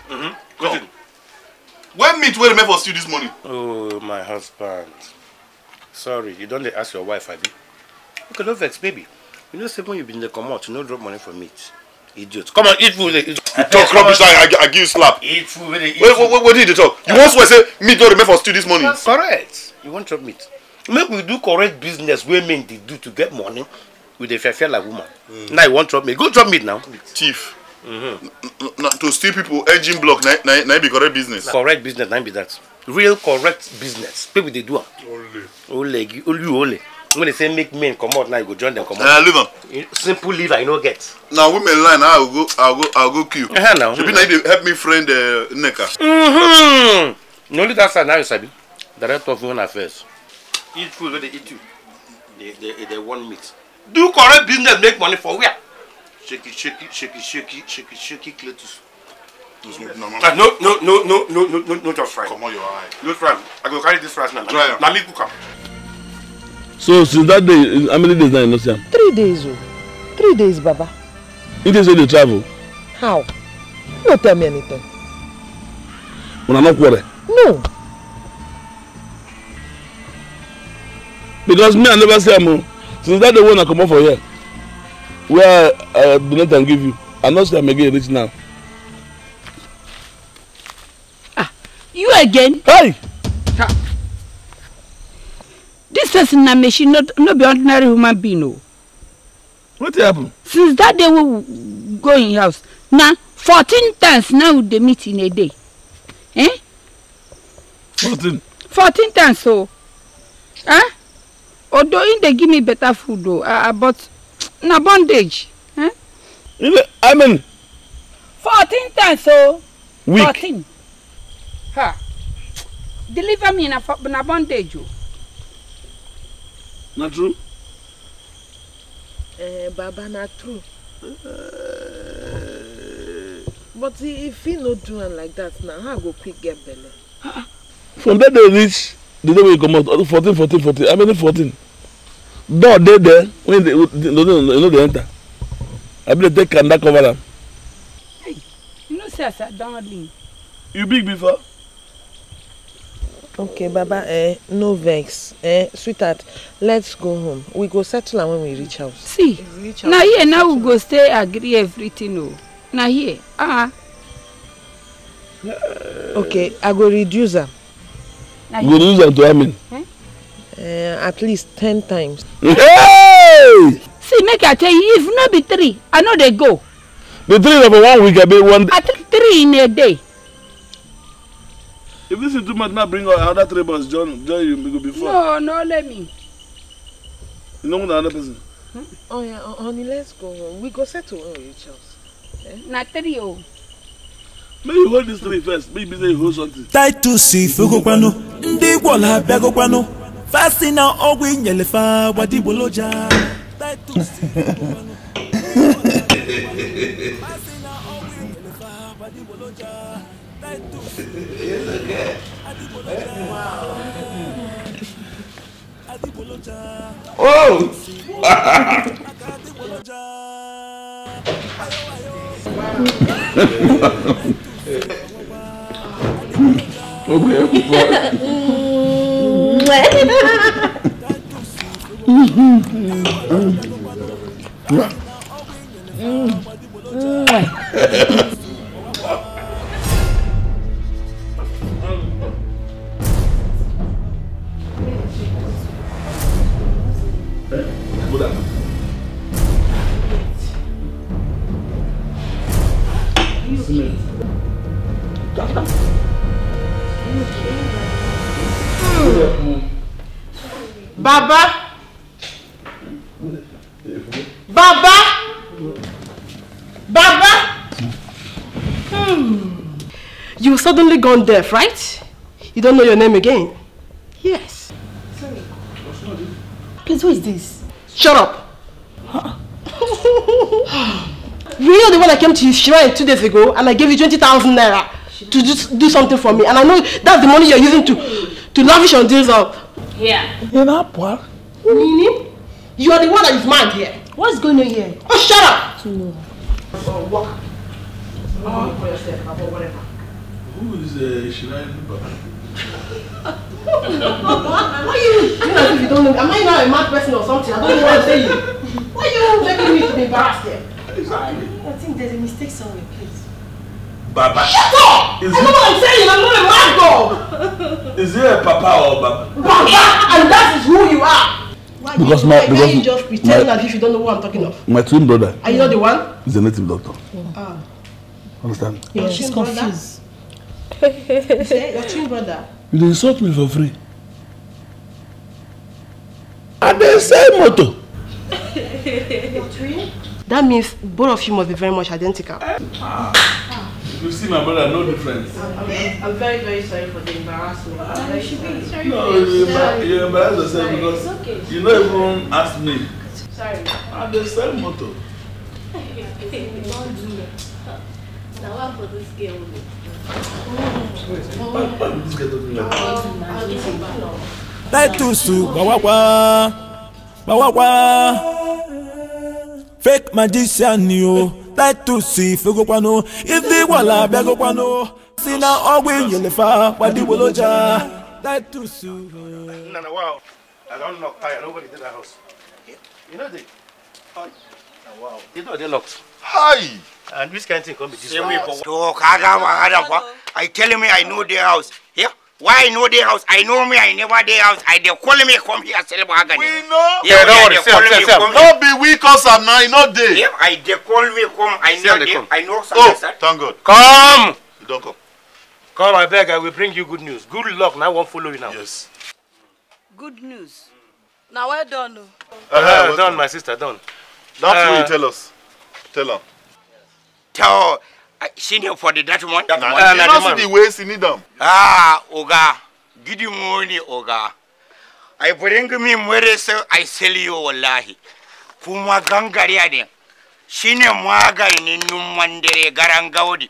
Mm-hmm. where remain for stew this morning oh my husband sorry you don't ask your wife abi ok no vex baby you know say when you there, come out, you no drop money for meat idiot come on eat food you talk rubbish i give you slap eat food wey what did you talk you want to say meat no remain for stew this morning correct you want drop meat make we do correct business wey men dey do to get money we dey fair fair like woman mm. now you wan chop me go chop me now. thief mm -hmm. na to steal people engine block na na na be correct business. correct business na be that real correct business people dey do am. ole ole ole when they say make men comot now you go join them comot. na liver. simple leave. I no get. na women line i go i go i go kill. Uh -huh, no, shebi na you dey help me friend uh, nneka. Mm -hmm. na only that side na you sabi director of women affairs eat food wey dey eat you dey dey dey want meat do correct business make money for where shaky shaky shaky shaky shaky shaky cletus. no no no no no no no no just fry. comot your eye. no fry i go carry this rice now na me cook am. so since that day how many days now you no see am. three days o oh. three days baba. you dey say you dey travel. how you no tell me anything. una no quarrel. no. because me i never see him. since that day one I come for here where i uh, do donate am give you i not see am again this now. ah you again. hey. Ha. this person na she not no be ordinary human being No. Oh. What happen. since that day will we go in house now. fourteen times now they meet in a day. Eh? fourteen. fourteen times So. Oh. Ah. although him dey give me better food o uh, but na bondage. Eh? i mean. fourteen times o. week fourteen. ha deliver me na, na bondage o. Oh. na true. Eh, baba na true. Uh, but if he no do am like that na how i go quick get belle. from that day reach the day wey you comot fourteen fourteen fourteen I mean fourteen door dey there when they no no no, dey enter I abi dey take kanda cover am. Hey, you know say as i don lean. you big before. okay baba eh, no vex eh, sweetheart let's go home we go settle am when we reach house. see reach na here now we go stay agree everything o oh. na here ah. Uh eh. -huh. okay i go reduce am. go reduce am to how many. Eh? Uh, at least ten times. Hey! See, make I tell you, if not be three, I know they go. The three of one week, I be one. At three in a day. If this is too much, now bring another three boys. John, John, you go before. No, no, let me. You know another person. Hmm? Oh yeah, oh, honey, let's go. We go settle on each house. not three oh. May you hold this three first. Maybe they hold something. Tight to see, Fugopano. They go go Bagopano fasina ọgwụ inyelefa gbadigboloja Oh! rẹ. Mm-hmm. Mm-hmm. Mm-hmm. Baba, Baba, Baba. Hmm. You suddenly gone deaf, right? You don't know your name again? Yes. Please, who is this? Shut up. Huh? you know the one I came to your shrine two days ago and I gave you 20,000 naira to just do something for me. And I know that's the money you're using to, to lavish on this. Uh, here? In Apua? Nini? You are the one that is mad here. What's going on here? Oh, shut up! No. Or oh, walk. Oh. Who is uh, Shirai Luba? Why you doing as if you don't know Am I not a mad person or something? I don't know what I'm saying. Why are you making me to be embarrassed here? Exactly. I think there's a mistake somewhere. Baba. Shut up! Is I know what I'm saying. I'm not a mad dog. Is there a Papa or Baba? Baba, and that is who you are. Why because my why because you just pretend my, as if you don't know who I'm talking of. My twin brother. Are you not the one? He's a native doctor. Oh. Ah. Understand? Your She's twin brother. you say your twin brother. You dey insult me for free. I dey sell motor. your twin. That means both of you must be very much identical. Ah. Ah. You see my brother, no difference. I'm, I'm very, very sorry for the embarrassment. No, ah, you should be sorry. No, you, embar you embarrass yourself sorry. because okay. you not even ask me. Sorry. I'm the same motto. Now I'm for this girl. Titles to Bawakwa Bawakwa Fake magician, you titusi fegokwano iziwala bịagokwano si na ọgwụ inyelefa gbadigboloja titusu I don't knock tire. Nobody did that house. You know the. Oh, wow. The door they locked. Hi. And which kind of thing come be this way? Talk, I got one. I tell me I know their house. Here. Yeah? why i no dey house i know me i never dey house i they call me come here sell mahogany. we know yeah, yeah don't worry sell sell sell no be weak, us. am na e no dey. if i they call me come i know dey i know some person. oh thank god. come. you don come. come abeg i will bring you good news good luck Now, i wan follow you now. yes. good news Now, well done o. Oh. Uh-huh, uh -huh, well done my sister done. that's uh, what you tell us tell her. tell. senior for the that one. That one. you see the way you need them. Ah, oga, give you money, oga. I bring me where so I sell you wallahi. Kuma gangariya ne. Shine Mwaga, numman dare garan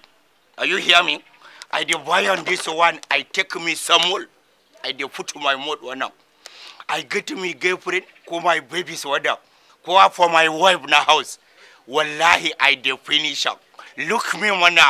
Are you hear me? I dey buy on this one. I take me some more. I dey put my mouth one up. I get me girlfriend, ko my baby's water, up? for my wife na house. Wallahi, I dey finish up. look me mana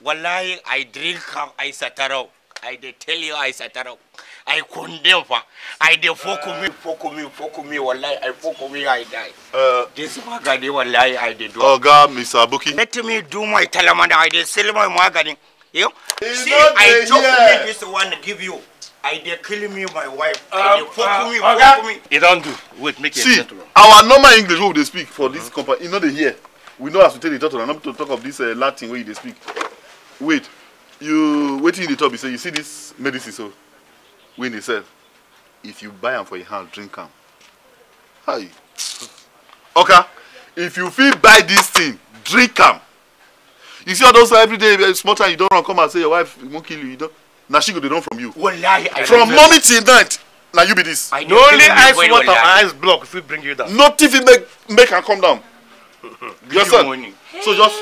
wallahi i drink am i satarau i dey tell you i satarau i condemn fa i dey foko me foko me foko me wallahi i foko me i die uh, this magani wallahi i dey do oga mr abuki let me do my talamana i dey sell my magani you see i chop me this one give you I dey kill me my wife. Um, I dey fuck uh, me, fuck okay. me. E don do. Wait, make it See, our normal English wey we dey speak for this mm -hmm. company, You no dey hear we know as we take dey talk to am not to talk of this uh, latin wey you dey speak wait you wetin you dey talk be say you see this medicine so wey dey sell if you buy am for your hand drink am hi oka if you fit buy this thing drink am you see all those everyday uh, small time you don run come out say your wife wan kill you you don na she go dey run from you wallahi i from morning till night na you be this. No only eyes water and eyes block fit bring you down. nothing fit make make am come down. you understand so just.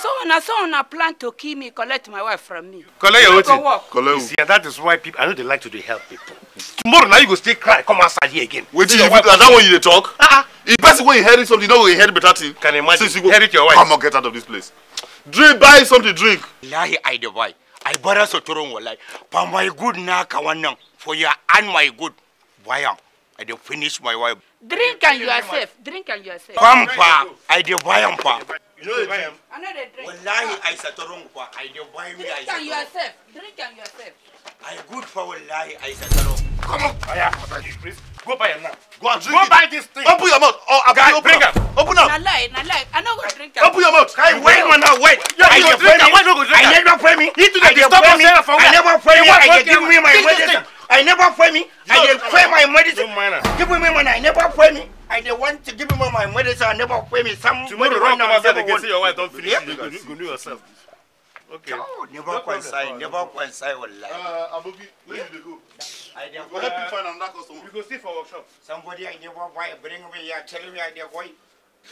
so una so una plan to kill me collect my wife from me. collect your wetin collect who. see that is why people i know they like to dey help people. tomorrow now you go stay cry come outside here again. wetin you that one you dey talk. Uh-uh. Ah, if ah. person wey inherit something no you inherit better thing. can you imagine since you go inherit your wife. come on get out of this place. drink buy something drink. lahi i dey boy. i borrow sotoron walai for my good na ka wannan for your and my good buy i dey finish my wife. Drink and you are safe. Drink and you are safe. Pam pa, I dey buy am pa. You know the time? I know the drink. Wallahi, I satorong wrong. I dey buy me. Drink and you are safe. Drink and you are safe. I good for wallahi, I wrong. Come on. Aya, please. Go buy am now. Go and drink Go it. buy this thing. Open your mouth. Oh, Guy, open bring up. Open up. Na lie, na lie. I no go drink am. Open your mouth. Guy, wait man now, wait. Yeah, I dey drink go drink am? I never pray me. You do dey disturb me. I never pray me. I dey give me my wedding. I never pay me. No, I did pay my medicine. Give me money. I never pay me. I did want to give me my medicine. I never pay me. Some tomorrow right now. Tomorrow, come outside. your wife. Don't finish. Yep. You, you, do yourself. Okay. No, never no coincide. Never coincide with Uh, Abobi, where yeah. did you go? I did. Go help you find another customer. You go see for workshop. Somebody I never buy. Bring me here. Tell me I did buy.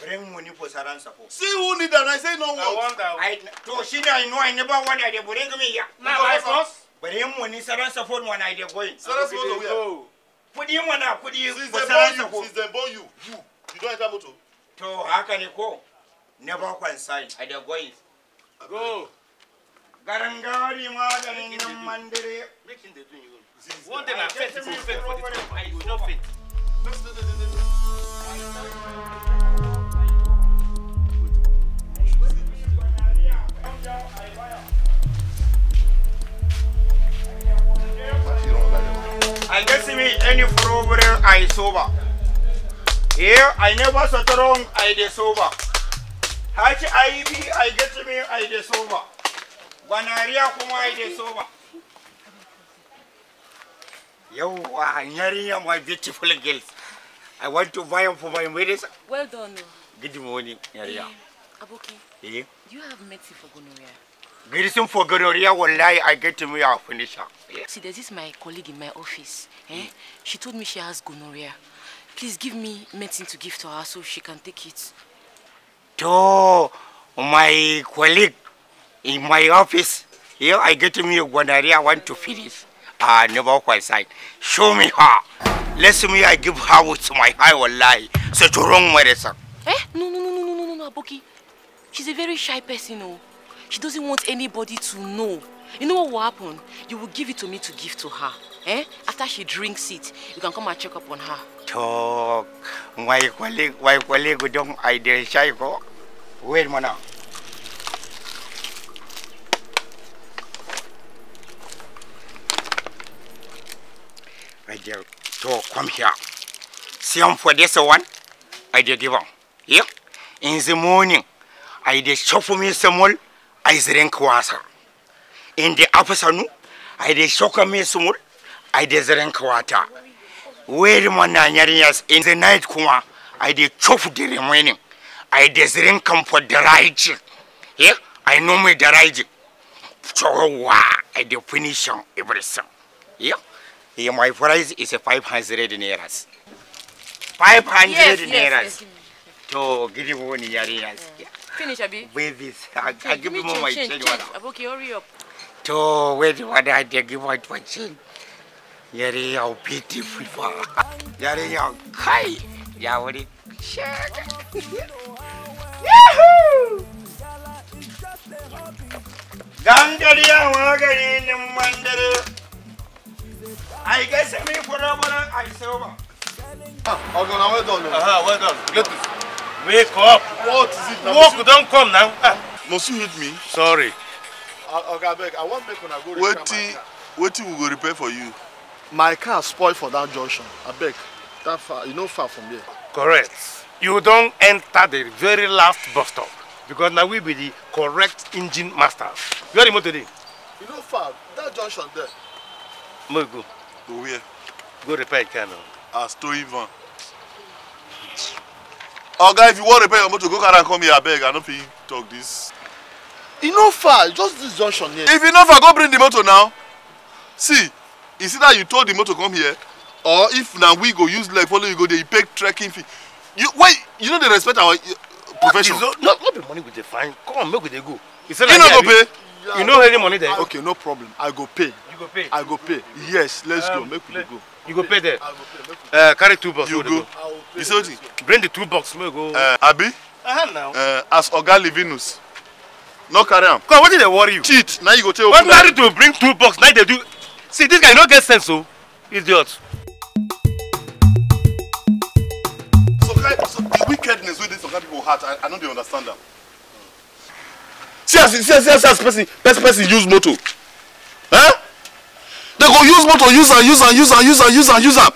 Bring money for Saran support. See who need that? I say no one. I want that. I, to she, I know I never want. I did bring me here. Now I lost. bari mu ni saran phone when I dey going. Saransa wani where? Kudi mana kudi ko Since they born you, you, you don't enter To haka ne ko? Never consign. I dey going. Go. garangari maganin nan mandire. Making the doing you. One day fit for the time. I go not fit Yeah. I guess me any problem I sober. Yeah, I never sat wrong I de sober. Hatch I I get me I de sober. Banaria kuma I de sober. Yo, Nyaria, my beautiful girls. I want to buy them for my marriage. Well done. Oh. Good morning, Nyaria. Hey, eh, Aboki, hey? Eh? you have medicine for gonorrhea. Medicine for gonorrhea will lie, I get to me, i finisher. finish See, this is my colleague in my office. Eh? Mm. She told me she has gonorrhea. Please give me medicine to give to her so she can take it. To my colleague in my office, here I get to me gonorrhea, I want to finish. I ah, never quite sight. Show me her. Let me I give her with my eye will lie. So a wrong medicine. Eh? No, no, no, no, no, no, no, Aboki. She's a very shy person, oh. She doesn't want anybody to know. You know what will happen? You will give it to me to give to her. Eh? After she drinks it, you can come and check up on her. Talk. My colleague, my colleague, don't go. Wait, mana. My dear, talk. come here. See him for this one. I dare give him. Yeah? In the morning, I dare shop for me some more. I drink water. In the afternoon, I dey shoka me sumur, I dey drink water. Where my nanyarias in the night kuma, I dey chop the remaining. I dey drink come for the right. Yeah, I know me the right. So I dey finish everything. Yeah. yeah, my price is 500 nairas. 500 nairas. Yes, yes, yes. To give you one nairas. yeah. Finish, Abi. Wear this. I, change. I give you my change. change. change. Aboki, hurry up. To wait, what I did give my change. Yari yau beautiful fa. Yari yau kai. Ya wuri shaka. Yahoo! Dan gari ya wa gari nin I guess me for a moment I saw. Ah, okay, now well done. Aha, well done. Good. Wake up. What is it now? Work don come now. Ah. Must you hit me? Sorry. Uh, Oga abeg, I wan make una go repair my car. Wetin we go repair for you? My car spoiled for that junction. I beg. that far, you know far from here. Correct. You don't enter the very last bus stop because now we be the correct engine master. Where the motor dey? You know far. That junction there. Make go. Go where? Go repair your car now. As ah, towing van oga if you wan repair your motor go carry am come here abeg i no fit talk this. e no far just this junction here. if e no far go bring the motor now see it's e that you tow the motor come here or if na we go use leg follow you go dey pay trekking fee you wait you no dey respect our uh, profession. no no no be money we dey find come on make we dey go. you say no here abi you no hear the money there. okay no problem i go pay. you go pay. i go pay yes let's um, go make we dey go. You go pay there. Uh, carry two boxes. You go. You see what? Bring the two boxes. Make go. Uh, Abi. Uh, now. Uh, as Oga Livinus. No carry am. Come, what did they worry you? Cheat. Now you go tell. When married to bring two boxes, now they do. See, this guy no get sense, so oh. idiot. So, guy, so the wickedness with this Oga people heart, I, I no dey understand them. See see, see see, see as person person person use motor. Huh? they go use motor use am use am use am use am use am use am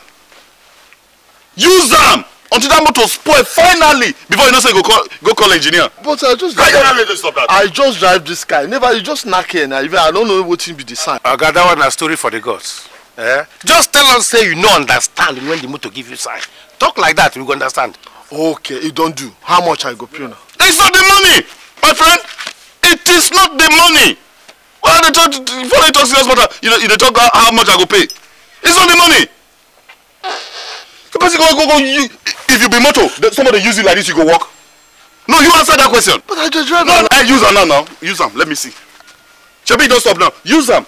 use am until that motor spoil finally before you know say you go call go call engineer. but i just drive i just drive this car never you just knack here na even i no know wetin be the sign. oga that one na story for the gods. Eh? just tell us say you no understand when the motor give you sign talk like that we go understand. okay e don do how much i go pay now? it's not the money my friend it is not the money why they talk before they talk serious matter you know They talk how, how much i go pay it's not the money the person go go go you if you be motor somebody use you like this you go walk. no you answer that question but i just drive no i use am now now use am let me see shebi don't stop now use am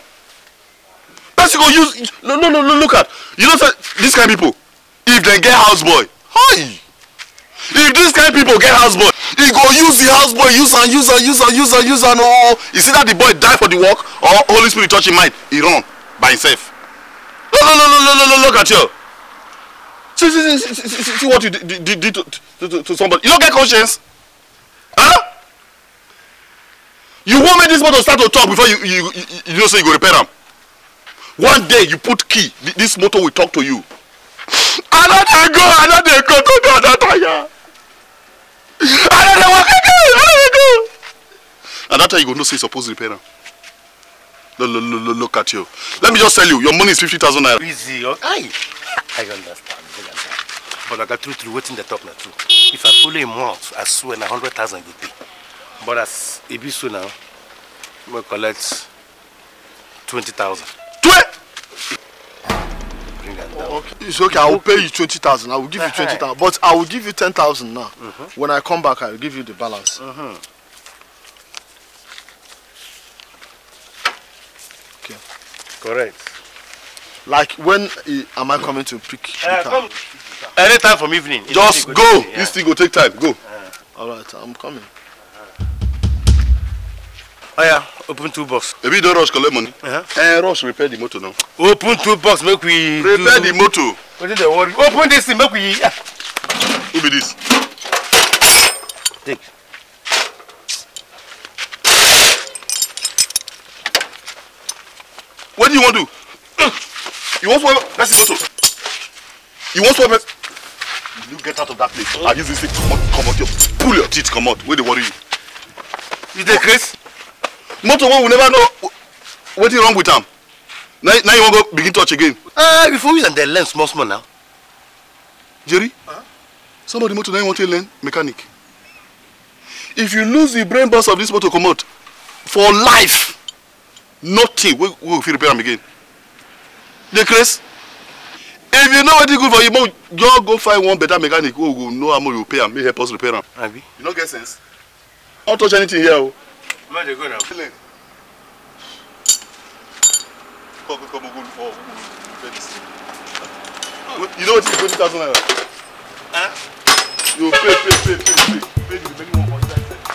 person go use no no no no. look at you know say this kind of people if they get house boy hi if dis kind people get houseboy he go use the houseboy use am use am use am use am use am ooo oh, oh. e see that the boy die for the work or holy spirit touch him mind he run by himself no no no no no no, no look at you see see see see, see, see what you did to, to to to somebody you no get conscience huh? you wan make this motor start to talk before you you you, you know say so you go repair am one day you put key this motor will talk to you I know go, I know go to the other tire. I know they walk I know go. And that time you go know say you suppose repair am. Look, look, look, look at you. Let me just tell you, your money is fifty thousand naira. Easy, okay. I understand. I understand. But I got true, true, waiting the top now too. If I follow him out, I swear na thousand go pay. But as it be so now, we collect 20,000. 20? bring down. Okay. It's okay. I will pay you 20,000. I will give you eh, eh. 20,000. But I will give you 10,000 now. Mm -hmm. When I come back, I will give you the balance. Mm -hmm. Okay. Correct. Like when uh, am I coming to pick? Uh, Any time from evening. Just go. yeah. This thing will take time. Go. Uh. All right. I'm coming. Oh yeah, open two box. If you don't rush, collect money. Uh -huh. And eh, rush, repair the motor now. Open two box, make we. Repair do... the motor. What is the worry? Open this thing, make we. Yeah. Who be this? Take. What do you want to do? You want swap? That's the motor. You want swap? You get out of that place. Oh. I use this thing. Come out, come out. pull your teeth, come out. Where they worry you? You take Chris? motor one we never know wetin wrong with am now, now you wan go begin touch again. ah uh, before use am dey learn small small now. jerry huh? some of the motor na you wan take learn mechanic if you lose the brain box of this motor comot for life nothing wey we go fit repair am again dey craze if you know wetin good for you make you just go find one better mechanic wey go know how much you pay am make help us repair am you no get sense Don't touch anything here o. Oh má dé gọ́nà. kọ́ kọ́ mo gbọ́dọ̀ ọ̀ mo fẹ́ ti sè. you know what is twenty thousand Huh? you pay pay pay pay pay pay the remaining one for inside.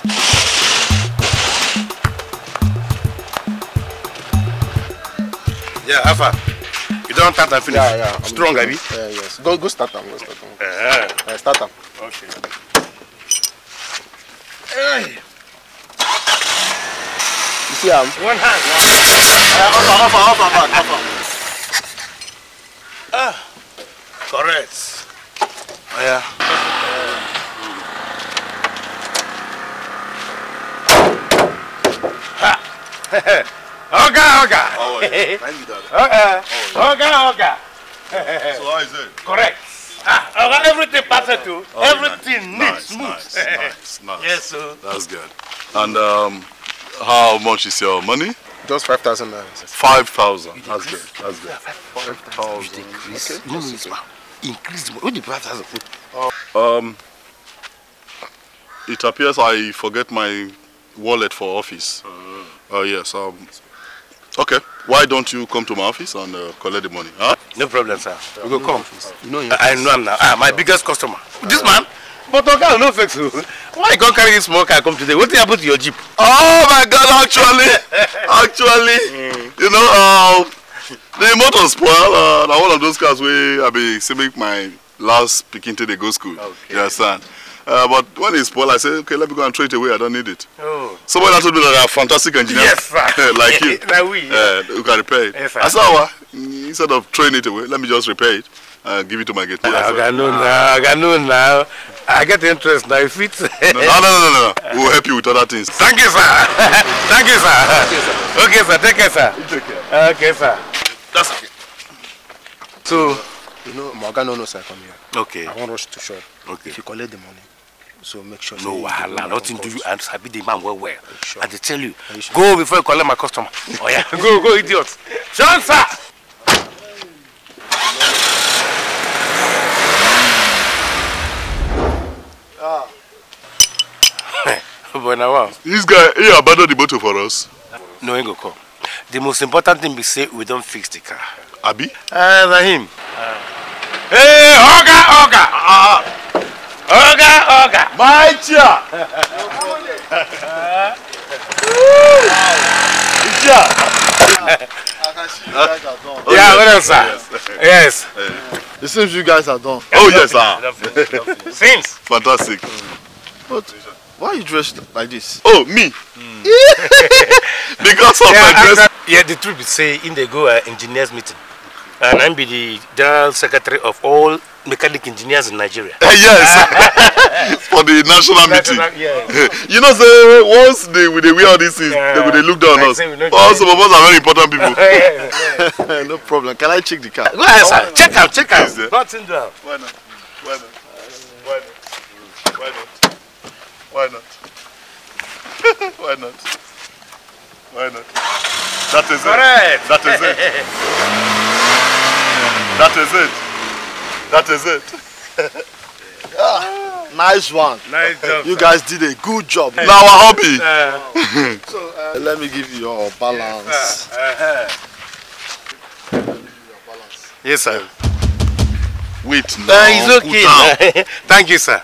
Yeah, Alpha. You don't start and finish. Yeah, yeah. Strong, Abi. Yeah, yes. Go, go start them. Go start them. Uh -huh. uh, start them. Okay. Hey. see him? One hand. One hand. Uh, offer, offer, offer, back, offer. Ah, correct. Oh, yeah. Oga, oga. Oh, yeah. Thank you, Dada. Oga, oga, oga. So how is it? Correct. Ah, oga, everything passes through. Oh, everything nice, neat, smooth. Nice, nice, nice. Yes, sir. That's good. And um, how much is your money? Just 5,000 naira. 5,000. That's good. That's good. 5,000. Increase. Okay. No, no, it's Increase. What the 5,000? Um, it appears I forget my wallet for office. Oh, uh, yes. Um, okay. Why don't you come to my office and uh, collect the money? Huh? No problem, sir. we will come. No, I, I know him now. Ah, my biggest customer. This uh, man? But Oga no not vex you. Why you come carry this small car come today? What did happen to your jeep? Oh my God! Actually, actually, hmm. you know, uh, the motor spoil. Uh, na one of those cars wey I be say make my last pikin take dey go school. Okay. You understand? Uh, but when it spoil, I say, okay, let me go and throw it away. I don't need it. Oh. Somebody that told be that a fantastic engineer. Yes, like you. like we. Yeah. Uh, who can repair it. Yes, I said, well, uh, instead of throwing it away, let me just repair it uh, give it to my guitar. I can know now. I can know now. I get interest now. If it's no, no, no, no, no. We'll help you with other things. Thank you, sir. Thank you, sir. Thank you, sir. Okay, sir. Take care, sir. Take care. Okay, sir. That's okay. So, you know, Morgan no sir come here. Okay. I won't rush to shop. Okay. If you collect the money. So make sure. No Allah. nothing do you and be the man well well. Sure. And they tell you, sure? go before you collect my customer. oh yeah, go go idiot. sir. but now This guy, he abandoned the motor for us. No, go come. The most important thing we say, we don't fix the car. Abi? Uh, eh, Rahim. Uh. Eh, hey, Oga, Oga! Uh, Oga, Oga! My chair! Chair! Yeah, what else, sir? Yes. yes. Eh, it seems you guys are done. Oh, yes, sir. Seems. Fantastic. Mm. But why are you dressed like this? Oh, me? Mm. because of yeah, my dress. yeah, the truth is, say, in the go uh, engineers meeting. And I'm be the general secretary of all mechanic engineers in Nigeria. yes, for the national, national meeting. Yeah, you know, say once they will they wear all these things, yeah. they will they look down on us. All some of us are very important people. no problem. Can I check the car? Go ahead, sir. Oh, check out, check out. Nothing down. Why not? Why not? Why not? Why not? Why not? That is Correct. it. That is it. that is it. That is it. Ah, nice one. Nice job. You sir. guys did a good job. Now our hobby. Uh, so, uh, Let me give you your balance. Yes, sir. Uh-huh. Wait, no. Uh, it's okay. Thank you, sir.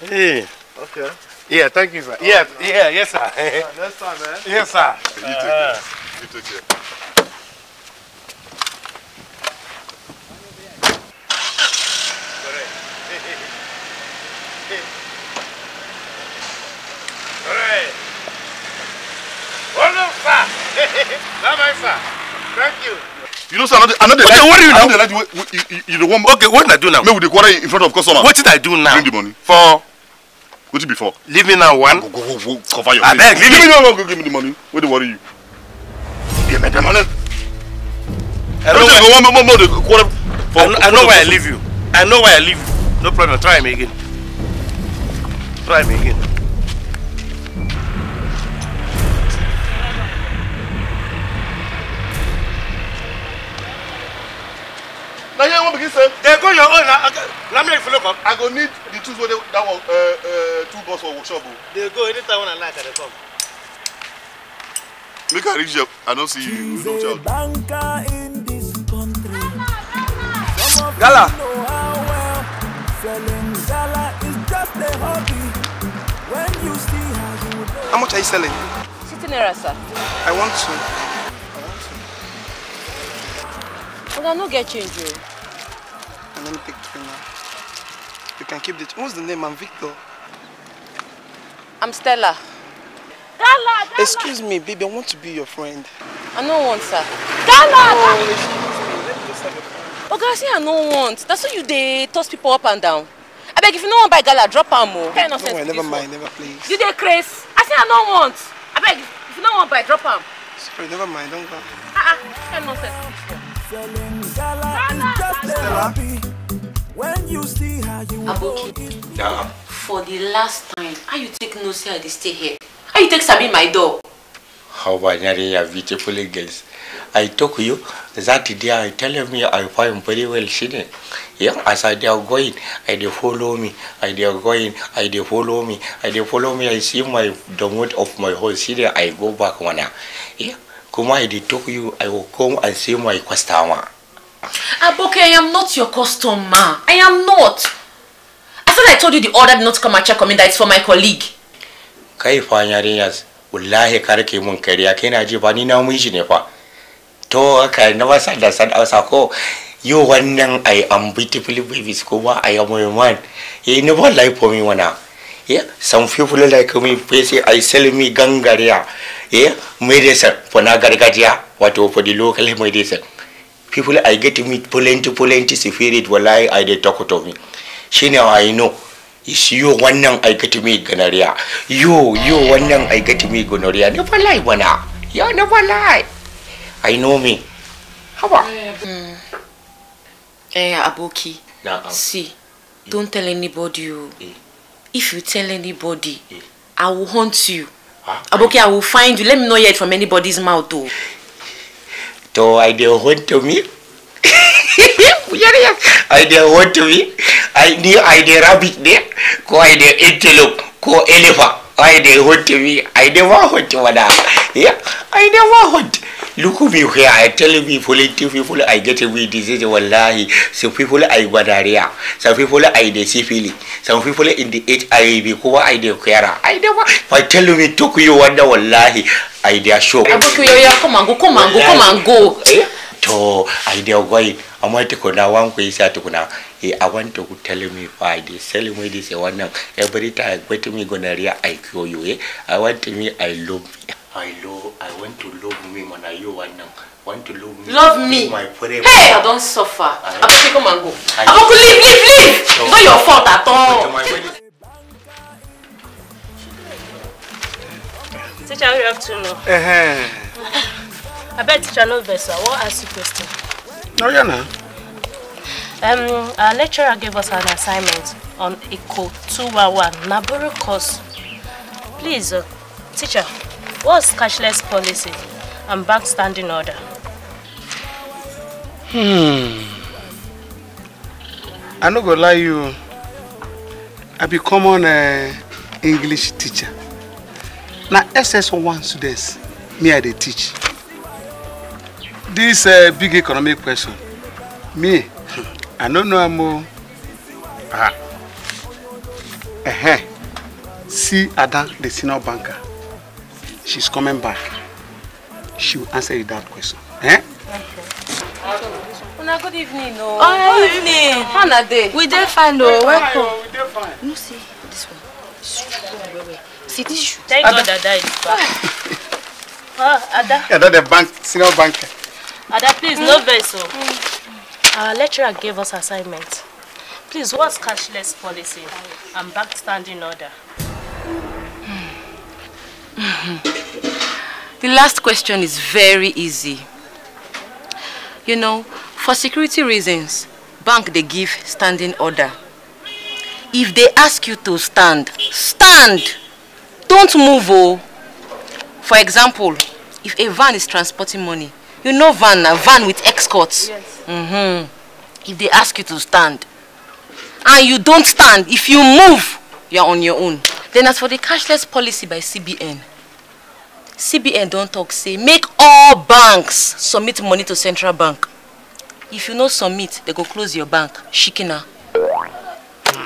Hey. Okay. Yeah, thank you, sir. Oh, yeah, no. yeah, yes, sir. Right, next time, man. Yes, sir. You take care. You take care. Thank you. You know, sir, I know, I know the okay, what do you know? I know the like, you, you, you, you the one. Okay, what did I do now? Maybe the quarter in front of customer. What did I do now? Bring the money. For wetin be for. leave me now one. go go go, go cover your ah, face. abeg leave me. now go give me the money wey do worry you. give me the money. i know where one more more for i I know why i leave you i know why i leave you no problem try me again try me again. na here one begin say. go your own Let me follow come. i go need the tools that uh, uh, two bus for workshop o. Oh. go anytime una like i come. make i reach there i don't see you no child. gala. how much are you selling. sitting there sir. i want to. But I no get change, yo. And let me take the thing now. You can keep it. What's the name? I'm Victor. I'm Stella. Stella. Excuse me, baby, I want to be your friend. I no want, sir. Stella. Oh, excuse me. Let me just Oga, see, oh, I no want. That's why you they toss people up and down. I beg, if you no want buy gala, drop am o. Oh. No, no way, never mind, one. never please. You there, Chris? I say I no want. I beg, if you no want buy, drop her. Sorry, never mind, don't go. Ah, uh ah, -uh. nonsense. just When you see how you Aboki. Yeah. For the last time, how you take no say I stay here? How you take Sabi my door? How you are beautiful girls. I took you that day I tell me I find very well sitting. Yeah, as I they are going, I they follow me, I they are going, I they follow me, I they follow me, I see my the mood of my whole city, I go back one hour. Yeah. Kuma, I they talk you, I will come and see my customer. Aboke, I am not your customer. I am not. I thought I told you the order did not come and check on me, That it's for my colleague. Kai fanya yarinyas, wallahi kar ke mun kariya, kai na ji ba ni na mun shi ne fa. To haka na wasa da san sako. Yo wannan I am beautiful babies kuma I am a man. He never lie for me wana yeah? some people like me face i sell me gangaria yeah? medicine for na what wato for the local medicine people i get to meet plenty plenty spirit wallahi i de talk to me She know i know is one wannan i get to meet gonorrhea you one wannan i get to meet gonorrhea never lie bana You never lie i know me How mm. eh aboki nah, um. see don't tell anybody you eh. if you tell anybody yeah. i will hunt you huh? Ah. aboki i will find you let me not hear it from anybody's mouth oh. o. to i dey hunt me. i dey hunt me i dey i dey rabbit there. ko i dey antelope ko elephant. I dey hot me. I never hot mother. Yeah, I never hot. Look me here. I tell people, tell people I get me disease. Wallahi, some people I gonorrhea, some people I dey syphilis, some people in the HIV. Kuma I dey kwara. I never. If I tell me talk you wanda, wallahi, I dey show. Aboki yo ya come and go, come and go, come and go. Eh? To I dey going. I'm going to go now. I'm going to go now hey, I want to tell me why they sell me this one every time wait me gonorrhea I cure you eh? I want me I love I love I want to love me when I you one want to love me love me my hey I don't suffer I, better come and go I, I don't leave leave leave it's not your fault at all Teacher, you have to know. Uh -huh. I bet teacher knows better. What ask you question? No, you're not. Um, our lecturer gave us an assignment on Eco 211 Naburu course. Please, uh, teacher, what's cashless policy and bank standing order? Hmm. I no go lie you. I be common uh, English teacher. Now SS1 students me I dey teach. This uh, big economic question. Me I don't know mo. Ah. Eh. See Ada, the senior banker. She's coming back. She will answer you that question. Eh? Una good evening, no. Oh, oh evening. How na day? We dey fine, oh. no. Welcome. Oh. We dey fine. No, see this one. Strong, See this shoe. Thank Ada. God Ada is back. Ah, Ada. Ada, the bank, senior banker. Ada, please, mm. no hmm. vex, oh. Mm. Our lecturer gave us assignment. Please, what's cashless policy and backstanding order? Mm. -hmm. The last question is very easy. You know, for security reasons, bank they give standing order. If they ask you to stand, stand! Don't move, oh! For example, if a van is transporting money, you know van, a van with escorts. Yes. Mm-hmm. If they ask you to stand and you don't stand, if you move, you're on your own. Then as for the cashless policy by CBN, CBN don't talk say make all banks submit money to central bank. If you no submit, they go close your bank. Shikina.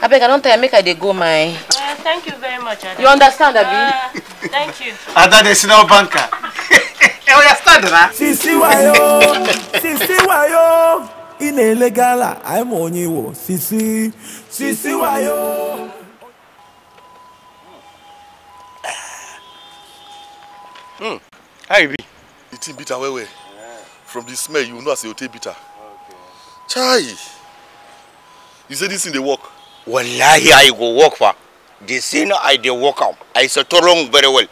abeg i don't tell you make i dey go my. Uh, thank you very much ada. you understand abi. Uh, thank you. ada dey no banker. ẹ ọya stand sisi wayo sisi wayo ị na-ele gala anyị ma sisi sisi wayo. Hmm. How e be? The thing bitter well well. From the smell, you know as it bitter. Okay. Chai! You say this in the work? Wallahi, I go work for. The thing I dey work am, I settle wrong very well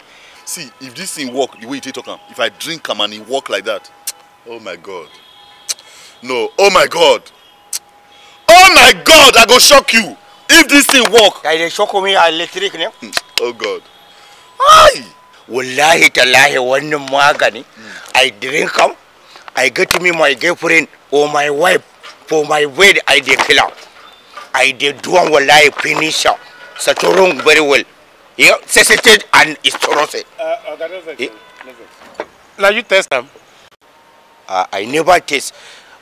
see if this thing work the way you take talk am if i drink am and e work like that oh my god no oh my god oh my god i go shock you if this thing work. i dey shock me electric ne. Hmm, oh god. Ay! wallahi tallahi wannan magani hmm. i drink am i get me my girlfriend or my wife for my wedding. i dey kill am i dey do am wallahi finish am wrong, very well. CCT and his torrent. Uh, uh, eh? now you test them. Uh, I never test,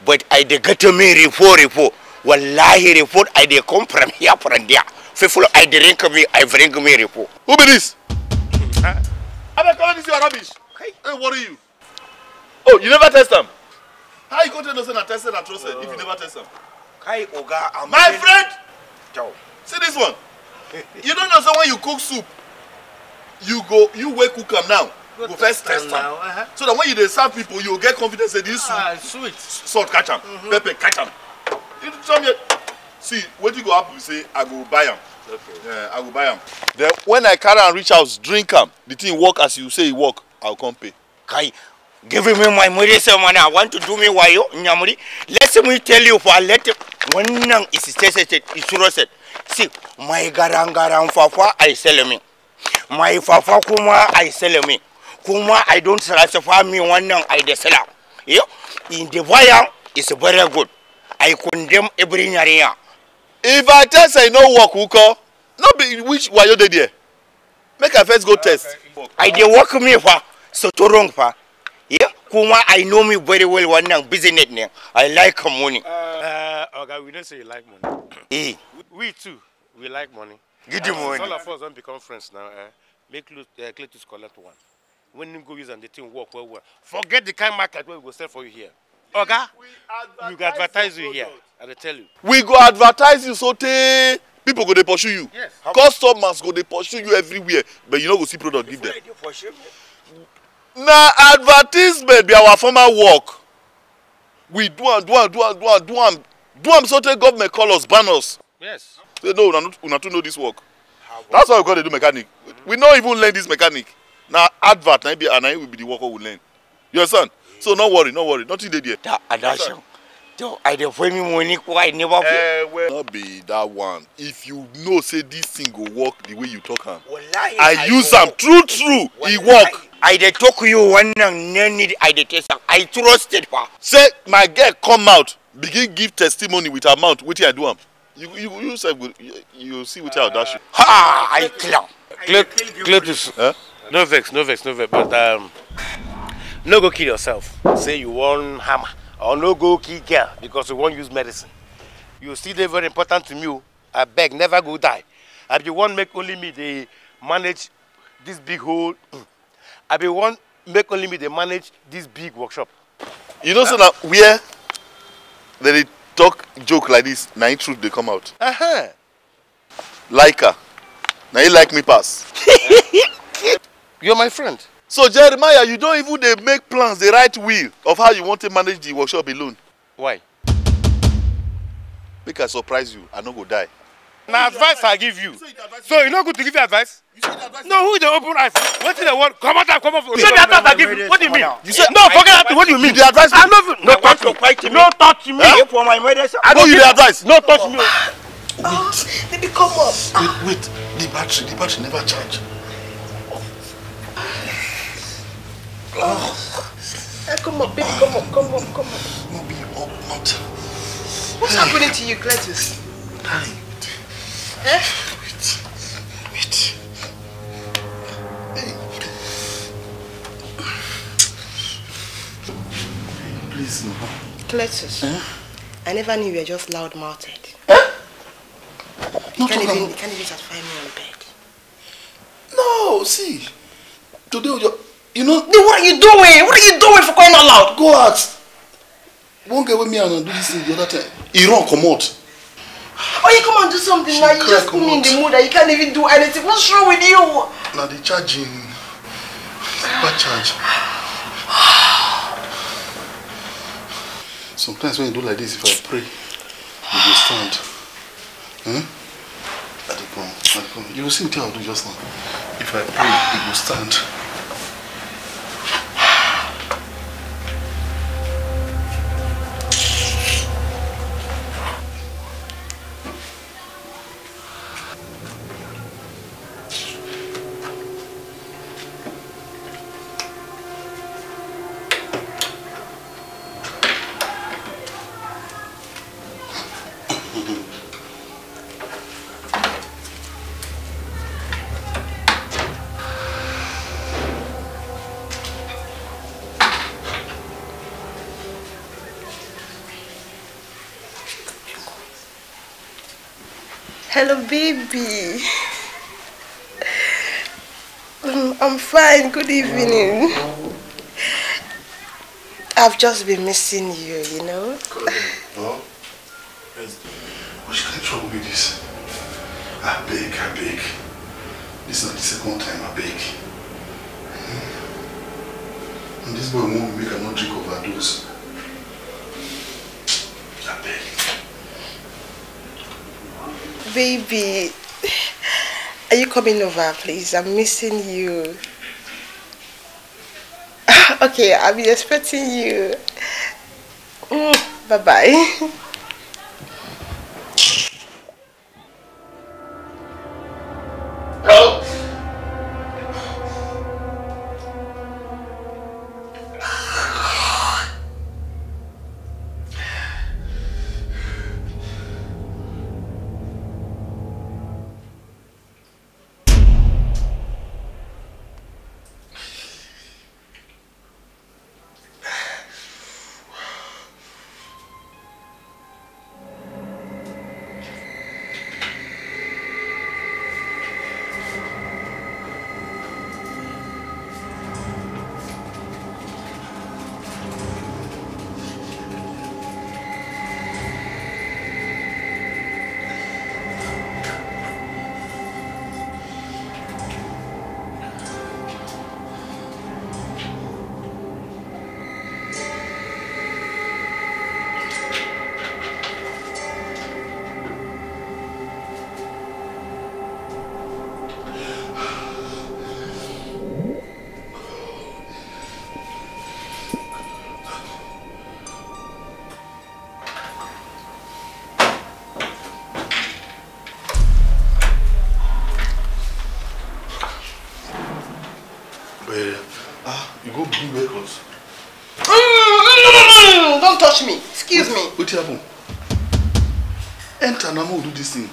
but I they get to me report report. Wallahi report I they come from here from there. Faithful I drink me I drink me report. Who be this? Huh? I'm not calling this your rubbish. Hey, worry you? Oh, you never test them. How you go to innocent and tested and trust oh. if you never test them? Kai Oga, I'm my friend. Ciao. See this one you don't know say when you cook soup you go you wey cook am now go, go first test am uh -huh. so that when you dey serve people you go get confidence say this soup ah, salt catch am mm -hmm. pepper catch am you tell me see wetin go happen be say i go buy am okay. yeah, i go buy am then when i carry am reach house drink am the thing work as you say e work i go come pay. kai giving me my money say money i want to do me wayo nyamuri let me tell you for let. Me wannan isi sai isuro set si mai garan garan fafa ai selemi mai fafa kuma ai selemi kuma i don't satisfy me wannan i da sala yo in the fire is very good i condemn every nyariya if i tell say no work uko no be which wayo dey there make i first go test i dey work me fa so to wrong fa yeah kuma i know me very well wannan business ne i like money uh, Oga, we don't say you like money. Hey, eh. We too, we like money. Give them uh, money. All of us don't become friends now. Eh? Make uh, eh, Cletus collect one. When you go use and the thing work well, well. Forget the kind market where we go sell for you here. Oga, we go advertise you here. I tell you. We go advertise you so tey people go dey pursue you. Yes. Customers go dey pursue you everywhere but you no go see product give them. Na advertisement be our former work. We do do am do am do am do am do am so government call us ban us. yes. say no una una too know this work. Ah, that's why we go dey do mechanic mm -hmm. we no even learn this mechanic na advert na e be and na we be the work we learn you understand mm so no worry no worry nothing dey there. da adasho i dey pay me money why i never pay. Uh, no be that one if you know say this thing go work the way you talk am i use am true true e work. i dey talk you wannan no need i dey test am i trusted pa. say my girl come out begin give testimony with her mouth wetin i do am you you you sef go you, see wetin i dash you. ha i clear. clear clear this. Huh? Eh? no vex no vex no vex but um, no go kill yourself say you wan hammer or no go kill girl because you won't use medicine you see, dey very important to me oh. I beg, never go die i be one make only me they manage this big hole. i be one make only me they manage this big workshop. you know uh, so na where dem dey talk joke like this na truth they come out. Uh -huh. like her Now you like me pass. you're my friend so jeremiah you don't even dey make plans the right will of how you wan take manage the workshop alone. why. make i surprise you i no go die. na advice i give you so you no good to give you advice. no who dey open eyes wetin dey wan comot am comot for. you say the advice i give you what do you mean. you say no forget that what do you mean. you dey advise me. i no fit no touch me no touch me. i no you dey advise. no touch me. oh baby come up. wait wait the battery the battery never charge. Oh. Eh, come on, baby, come on, come on, come on. No, be up, not. What's hey. happening to you, Gladys? Hi. Eh? Wait, wait. Hey. Please, no. Cletus, eh? I never knew you were just loud-mouthed. Eh? You can't, even, just can't even satisfy me on bed. No, see, today you're... You know? Then what are you doing? What are you doing for crying out loud? Go ask. not get with me and do this thing the other time. He run, come out. Or you come and do something she now, you just put me in the mood that you can't even do anything. What's wrong with you? Now the charging. Bad charge. Sometimes when you do like this, if I pray, you will stand. Hmm? not the I don't point. You will see what I'll do just now. If I pray, it will stand. and good evening. I've just been missing you, you know. What's the Which with this? I beg, I beg. This is not the second time I beg. Hmm. And this boy won't make another drink overdose. I beg. Baby, are you coming over, please? I'm missing you. Okay, I'll be expecting you. Mm, bye bye.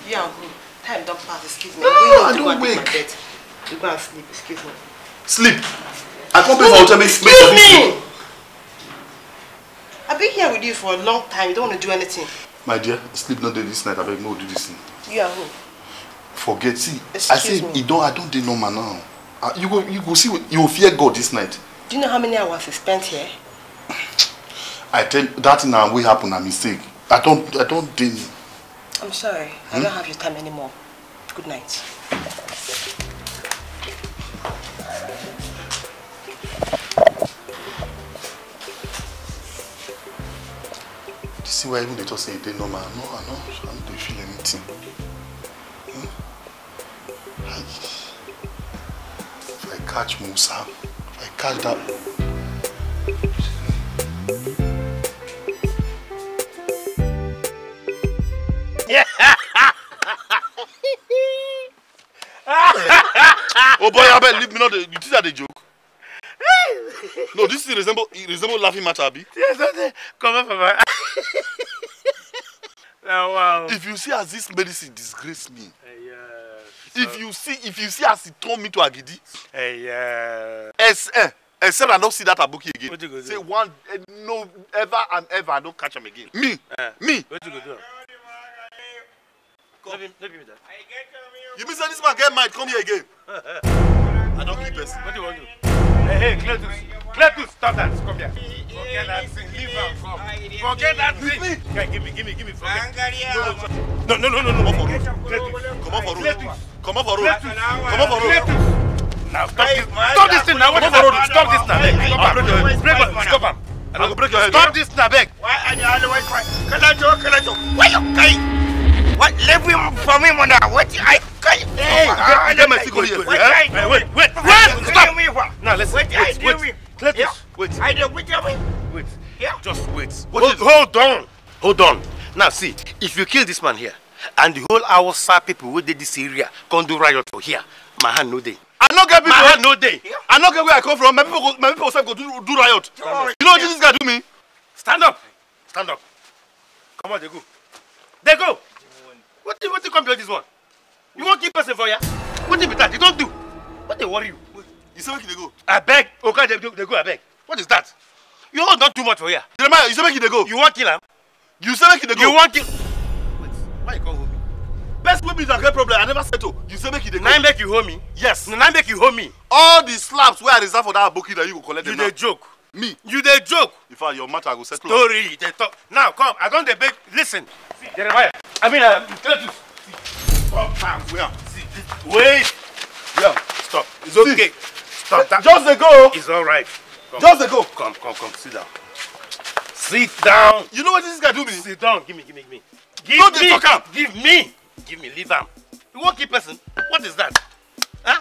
You and who? Time don't pass, excuse me. No, I don't wake. You go and sleep, excuse me. Sleep? I can't pay for ultimate sleep. Excuse me! I've been here with you for a long time. You don't want to do anything. My dear, sleep not there this night. I beg no do this thing. You are who? Forget. See, Excuse I say you don't. I don't do no man now. Ah, you go. You go see. You will fear God this night. Do you know how many hours I spent here? I tell that now. will happen a mistake. I don't. I don't do. I'm sorry. Hmm? I don't have your time anymore. Good night. You see why even they just say they normal. No, I know. I don't feel anything. Hmm? I, if I catch Musa, if I catch that... oh boy, Abel, leave me not. you think that a joke? no, this is resemble it resemble laughing matter, Abi. Yes, okay. Come on, Papa. now, wow. If you see as this medicine disgrace me. Uh, eh, yeah, so... If you see if you see as it turned me to Agidi. Uh, yeah. As, eh, except eh, eh, I don't see that Abuki again. What you go do? Say one eh, no ever and ever I don't catch him again. Me. Uh, me. What you go do? No be, no be me that. You mean say this man get mad come here again? I don't keep person. What do you want to do? Hey, hey, Cletus. Cletus, stop that. Come here. Forget that thing. Leave and come. Forget that thing. Guy, give me, give me, give me. Forget. No, no, no, no, no. Come on for road. Come on for road. Come on for road. Come on for road. Now, stop this. Stop this thing now. What is that? Stop this now. Break your Stop him. I go break your head. Stop this now, beg. Why are you always crying? Can I joke? Can I joke? Why you crying? What? Leave him for me, mother. What? I can't. Hey, uh, let my see here. wait, wait, wait. Stop. Now listen. Wait, wait, wait. wait. Cletus, wait. I don't wait. Wait. Yeah. Just wait. What hold, is... hold on. Hold on. Now see, if you kill this man here, and the whole our Hausa people wey dey this area come do riot for here, my hand no day. I no get people. My hand no day. Yeah. I no get where I come from. My people, go, my people sef go do, do riot. You know what this guy do me? Stand up. Stand up. Come on, they go. They go. What do you, what you come do this one? You wan kill person for ya? Wetin be that? You don't do. What they worry you? You say make they dey go. Abeg, Oga oh, dey they go I beg. What is that? You own don too much for ya. Jeremiah, you say make they go. You wan kill him? You say make they go. You wan kill. Wait, why you call hold me? Best wey is a great problem, I never settle. You say make they go. Na make you hold me? Yes. Na make you hold me? All the slaps wey I reserve for that aboki that you go collect them You dey joke. Me? You dey joke. If I your matter I go settle. Story, they talk. Now come, I don't dey beg. Listen. See, Jeremiah. I mean, uh, Stop, man. wait. yeah, stop. It's see. okay. Stop that. Just a go. It's all right. Come. Just a go. Come, come, come. Sit down. Sit down. You know what this guy do me? Sit down. Give me, give me, give me. Give Don't me. Talk give me. Give me. Leave him. You won't keep person. What is that? Huh?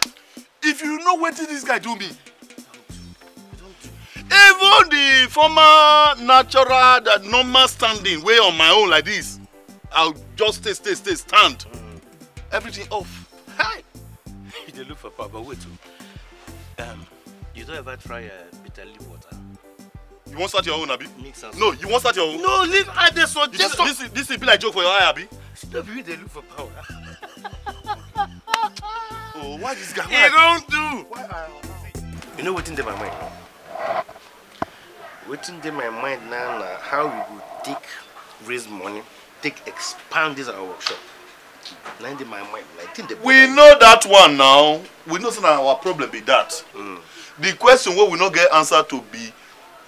If you know what this guy do me, even the former natural, the normal standing way on my own like this, I'll just stay, stay, stay, stand. Mm. Everything off. Hi! they look for Papa, wait. Oh. Um, you don't ever try uh, bitter leaf water. You won't start your own, Abby? Mix No, you won't start your own. No, leave I they suggest. This, this, this will be like joke for your eye, Abby. Stop you, they look for power. oh, why this guy? He don't do. you know what's in my mind? What's in my mind now, now how we go take raise money take expand this our workshop. Na in my mind, like think the. We know that one now. We know that our problem be that. Mm. The question wey we not get answer to be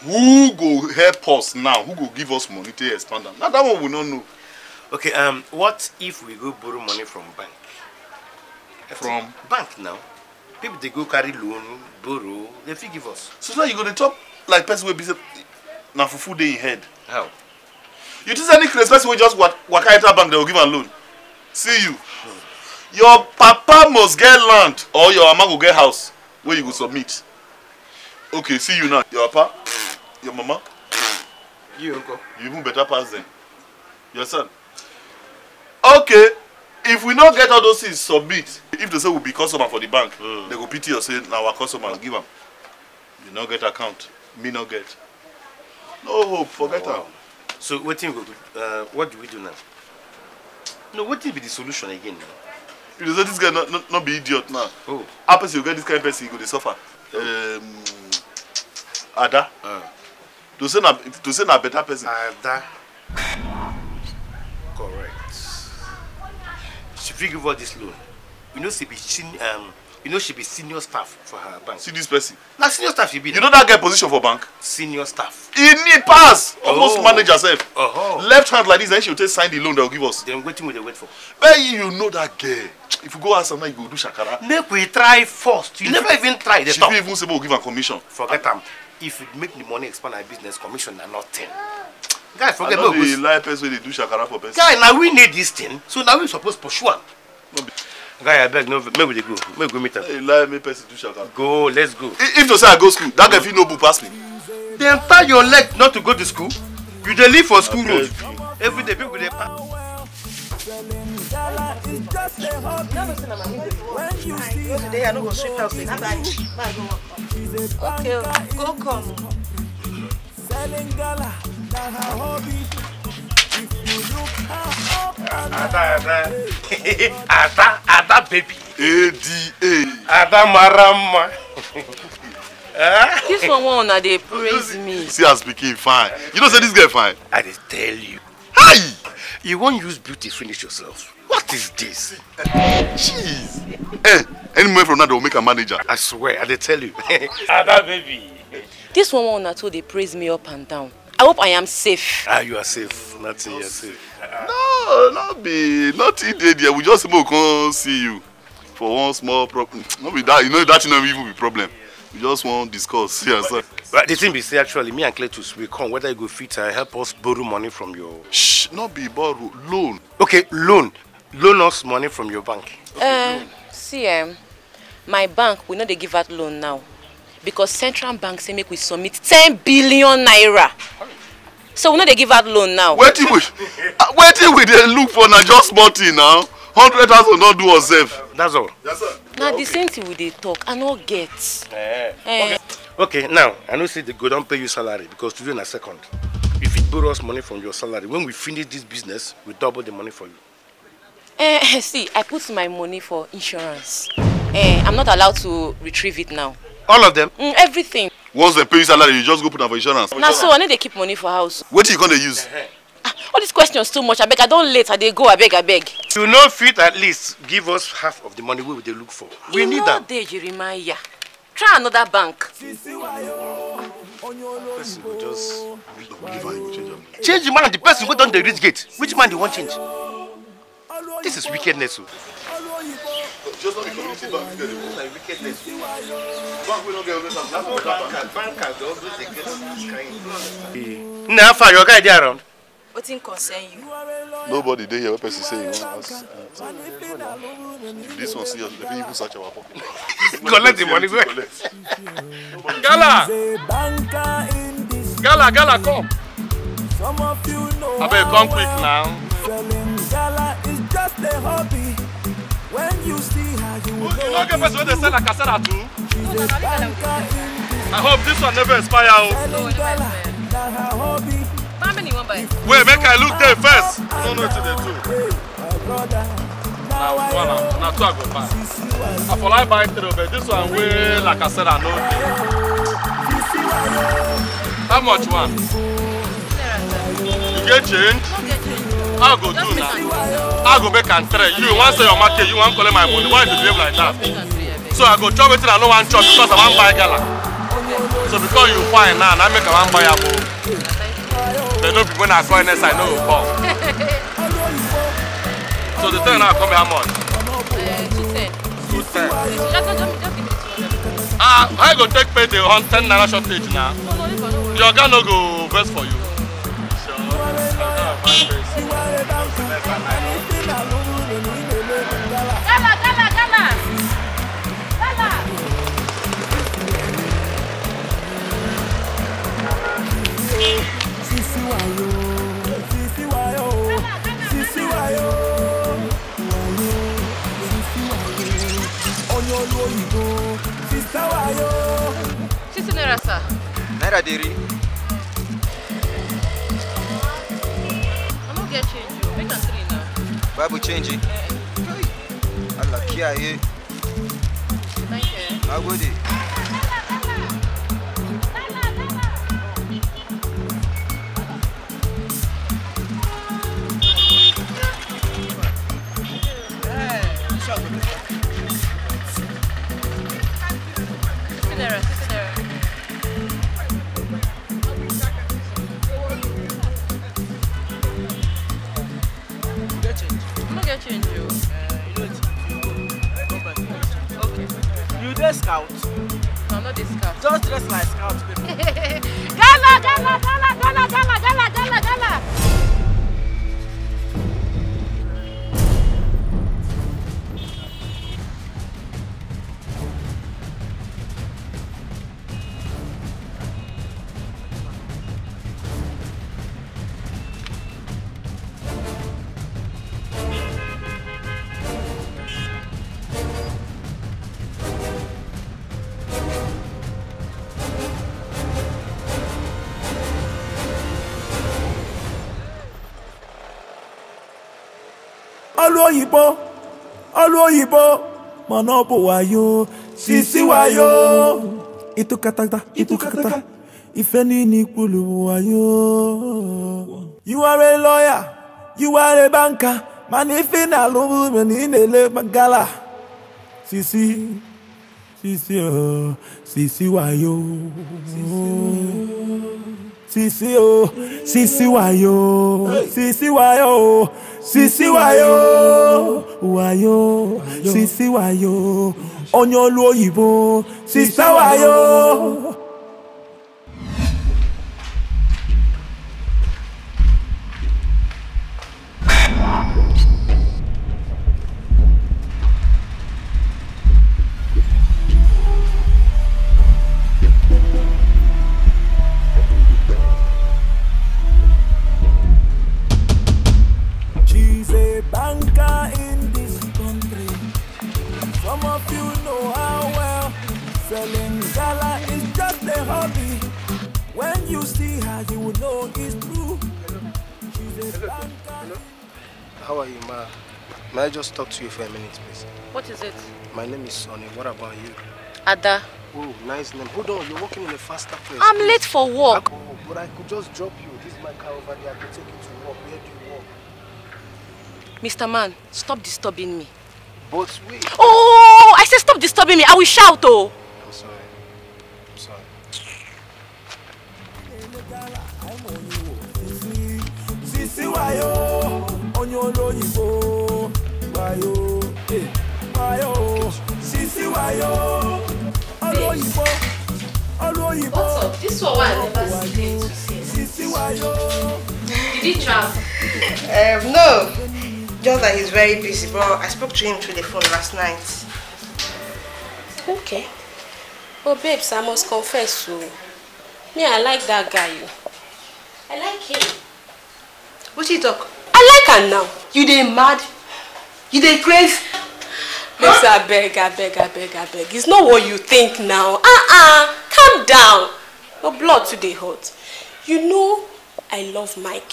who go help us now? Who go give us money to expand them? Now that one we no know. Okay, um, what if we go borrow money from bank? From bank now. People they go carry loan, borrow, they fit give us. So now you go to top like person will be say, na fufu dey in head. How? You think any credit? person will just waka enter bank, they will give a loan. See you. Your papa must get land or your mama go get house where you go submit. Okay, see you now. Your papa, your mama. You, uncle. You even better pass them. Your son. Okay, if we no get all those things submit, if they say we be customer for the bank, mm. they go pity us say na our customer give am. You no get account, me no get. No hope, forget am. Oh, wow. Her. So waiting, uh, what do we do now? No, what will be the solution again You know, this guy not, not, not be idiot now. Oh. Happens you get this kind of person, you go to suffer. Oh. Um, Ada. Uh. To say na to say na better person. Ada. Correct. She fit give her this loan. You know, she be chin um, you know she be senior staff for her bank. see this person. na senior staff she be. you know that guy position for bank. senior staff. he need pass almost oh. manage herself. Uh -huh. left hand like this then she go take sign the loan they go give us. then wetin we dey wait for. but you know that girl if you go ask am now you go do shakara. make we try first you if never even try dey talk. she fit even say make we give am commission. forget am if we make the money expand our business commission na nothing. guy forget no go. i no dey lie person wey dey do shakara for person. guy na we need this thing so na we suppose pursue am. No guy abeg no make we dey go make we go meet am. hey lie make person do shaka. go let's go. if to say i go school that guy fit no book pass me. dey tie your leg not to go to school you dey live for school road every day people dey pass. Today Okay, go come. Selling gala, that her hobby. Ada, ada. ada, ada baby. ADA. Ada marama. Eh? this one one na dey praise me. See as speaking fine. You don't say this girl fine. I dey tell you. Hi! You won't use beauty finish yourself. What is this? Jeez. hey, eh, any moment from now they will make a manager. I swear, I tell you. Ada baby. This one one na they praise me up and down. I hope I am safe. Ah, you are safe. Nothing, you are safe. Ah, ah. No, not be, not idiot. We just mo come see you for one small problem. No be that, you know that no even be problem. We just want discuss here, sir. Right, the thing be say actually, me and Cletus we come whether you go fit and help us borrow money from your. Shh, not be borrow loan. Okay, loan, loan us money from your bank. Okay, uh, loan. see, um, my bank we know they give out loan now because central bank say make we submit ten billion naira so we no dey give out loan now. wetin we ah, wetin we dey look for na just small thing now hundred thousand don do us sef. that's all. Yes, na the same thing we dey talk i no get. Eh. Eh. Okay. okay now i know say they go don pay you salary because today na second you fit borrow us money from your salary when we finish this business we double the money for you. Eh, see i put my money for insurance eh, i'm not allowed to retrieve it now all of them mm, everything once dem pay you salary you just go put am for insurance na so i no dey keep money for house wetin you come dey use ah, all these questions too much abeg i don late i dey go abeg abeg you no fit at least give us half of the money wey we dey look for we you need am you no dey jeremiah try another bank person go just give am you go change am change the man and the person wey don dey reach gate which man dey wan change this is wickedness o. Oh just not the community bank get it. like wickedness. bank wey no get always have money. bankers bankers dey always dey get kind. na fa your guy dey around. wetin concern you. nobody there. here wey person say you wan this one see, dem fit even search our pocket. collect the money wey. gala gala gala come. abeg come quick now. Selling gala is just a hobby. When you know, they sell a cassette too. I hope this one never expire. Oh. Wait, make I look there first. I don't uh, know what they do. Now one, now two I go buy. I ah, for like buy three, but this one way like I said I know. How much one? You get change? how go do now how go make and trade. you want sell your market you want collect my money why you behave like that so i go chop wetin i don't want chop because i want buy gala so because you fine now na make i wan buy am o dem no be when i call i know. go come so the thing now come here how much. two ten. ah I go take pay the ten naira shortage now. Your oga no go best for you. Sure. ní olú òyìnbó sísá wáyó. títí náírà sà. náírà dé i no get change o make am three now. bible change. Eh, eh. alakiaye. thank you. agodi. oyibo olu oyibo mana ọ bụ wayo sisi wayo itukatata itukatata ife niile ikpulu wayo you are a lawyer you are a banker mana ife na-alụ na ị na-ele gala sisi sisi o sisi wayo sisi o sisi wayo sisi wayo sisi wayo wayo sisi wayo onye olu oyibo sisa wayo just talk to you for a minute, please. What is it? My name is Sonny. What about you? Ada. Oh, nice name. Hold on, you're working in a faster place. I'm please. late for work. Oh, but I could just drop you. This is my car over there. I could take you to work. Where do you work? Mr. Man, stop disturbing me. But wait. Oh, I said stop disturbing me. I will shout, oh. I'm sorry. I'm sorry. Sisi wayo, onyo wayo wayo eh, sisi wayo olóyìnbó olóyìnbó wayo sisi wayo. Did he travel? Um, no, just that he's very busy, but I spoke to him through the phone last night. Okay. Oh, babes, I must confess to Me, I like that guy. I like him. What you talk? I like her now. You dey mad? you dey craze. Babes, huh? abeg, abeg, abeg, abeg. It's not what you think now. Uh-uh. Calm down. Your blood today hot. You know I love Mike.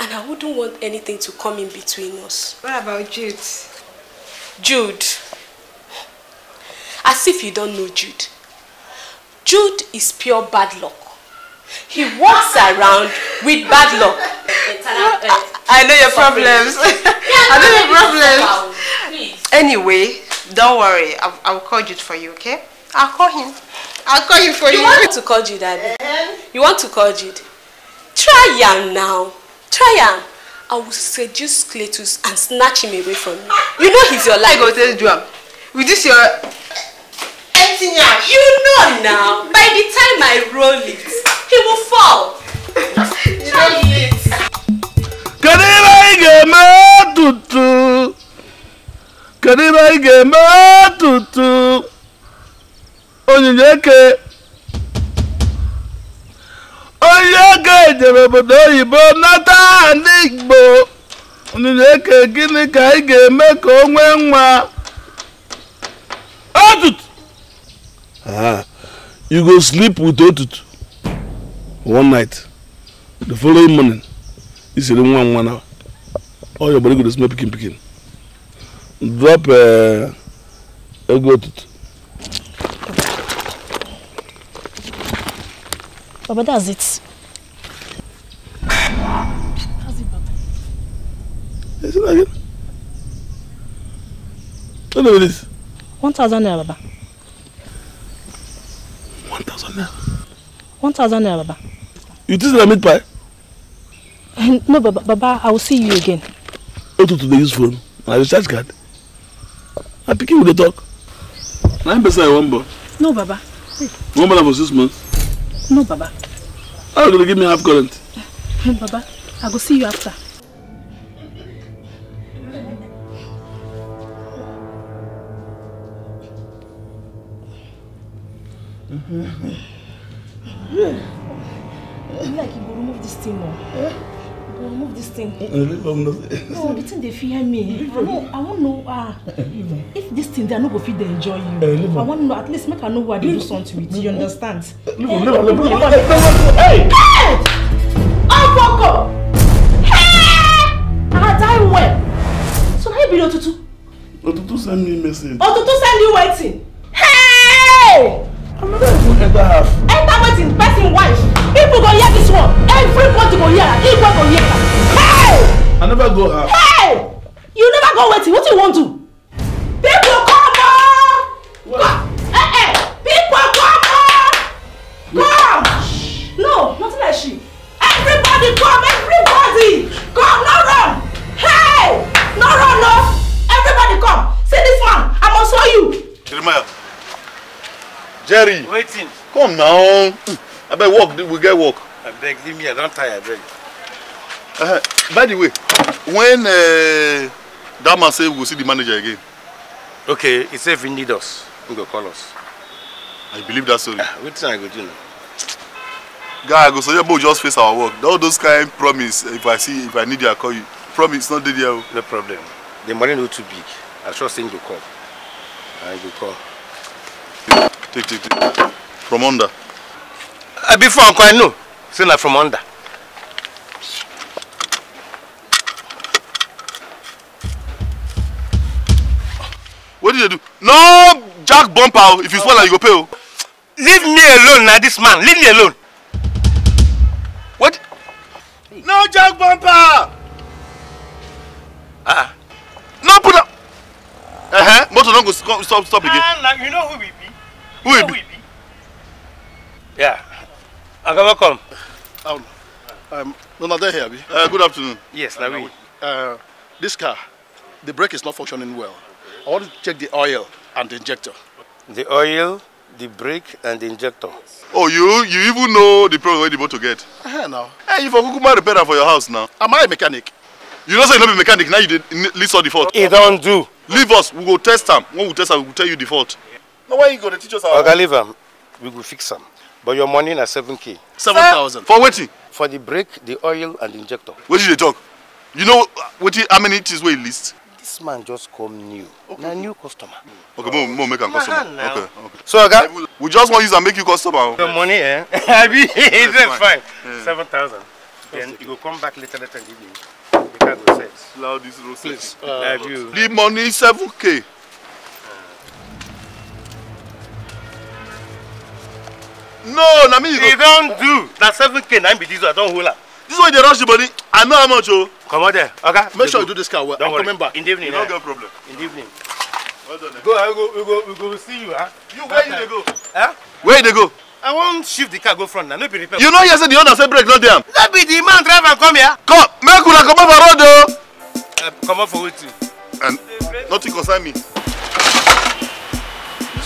And I wouldn't want anything to come in between us. What about Jude? Jude. As if you don't know Jude. Jude is pure bad luck. He walks around with bad luck. I know your problems. I know your problems. Anyway, don't worry. I'll, I'll call Jude for you, okay? I'll call him. I'll call you for you. You want to call Jude, Daddy? Eh? You want to call Jude? Try him now. Try him. I will seduce Cletus and snatch him away from you. You know he's your life. I go tell you, with this your You know now. By the time I roll it, he will fall. Try it. ị ga-eme tutu kedu ibe ị ga-eme tutu onyinye eke onye eke jere obodo oyibo nata ndị igbo onyinye eke gịnị ka ị ga-eme ka o nwee nwa otutu you go sleep with otutu one night the following morning isiri nwa nwa na all oh, your body good dey smell pikin pikin drop uh, ego tutu. Baba, that's it. How's it, Baba. Is it again? What is this? 1,000 naira, Baba. 1,000 naira? 1,000 naira, Baba. You think I meat pie? no, Baba, Baba, I will see you again. to dey use phone na recharge card na pikin we dey talk na him person i wan born. no baba. you wan born am for six months. no baba. how you go dey give me half current. Eh, baba i go see you after. Mm -hmm. yeah. like you go remove this thing now. Eh? remove uh, this thing. no. no the thing dey fear me. no i wan know ah if this thing they are not going to enjoy you. Eh, i want to know at least make her know who i dey do something with you understand. Hey, am leave am leave hey. hey okoko hey oh, i die well so na you be the otutu. otutu send me a message. otutu send you wetin. hey. I'm not even ever have. Enter waiting, person wife. People go hear this one. Everybody go hear. Everybody go hear. Hey! I never go have. Hey! You never go waiting. What do you want to? Come now. I beg work. We get work. I beg, leave me. I don't tire. I Uh, by the way, when uh, that man say we we'll see the manager again. Okay, he say if he need us, he go call us. I believe that story. Uh, wetin I go do now? Guy, I go suggest so we just face our work. All those kind promise. If I see, if I need you, I call you. Promise, not dey there. Oh. No problem. The money no too big. I trust him go come. I go come. Take, take, take. From under. Uh, before Uncle, I know. Say na from under. What did you do? No jack bumper. Oh, if you fall, you go pay. Oh. Leave me alone now, this man. Leave me alone. What? No jack bumper. Ah. Uh, no put up. Uh huh. Motor don't go stop stop again. Uh, nah, you know who we be. Who we be? Yeah. Aga, welcome. Um, um, no, no, they're here. Uh, good afternoon. Yes, uh, Nawi. Uh, this car, the brake is not functioning well. I want to check the oil and the injector. The oil, the brake, and the injector. Oh, you you even know the problem where the motor get? Uh -huh, now. Hey, you for Kukuma repairer for your house now. Am I a mechanic? You don't say you're not a mechanic, now you did, list all the fault. It don't do. Leave us, we will test them. When we test them, we will tell you the fault. No, why you going to teach us how? Okay, leave them. We will fix them. But your money na seven k seven thousand For waiting? For the brake, the oil, and the injector. What did they talk? You know uh, what how many things were list? This man just come new. Okay. Na new customer. Okay, oh. more make him customer. Okay, okay. So, okay? We just want use and make you customer. The oh. money, eh? I mean, it's yes, fine. seven thousand. Then you go come back later, later in the evening. The car go set. Allow this road Please. Uh, the money seven k no na me you go. e do na seven k na be this one i don't hold up. this one they rush the money i know how much oh. Come comot there Okay. make sure you do this car well Don't worry. back. in the evening no eh? get problem. in the evening. well done. Eh. go i eh, go we go we go see you. Huh? you where you dey go. Huh? where they go. i wan shift the car go front na no be repair. you know hear the owner said brake not dey Let no be the man drive am come here. come make come up for road o. Oh. Come up for wetin. and nothing concern me. this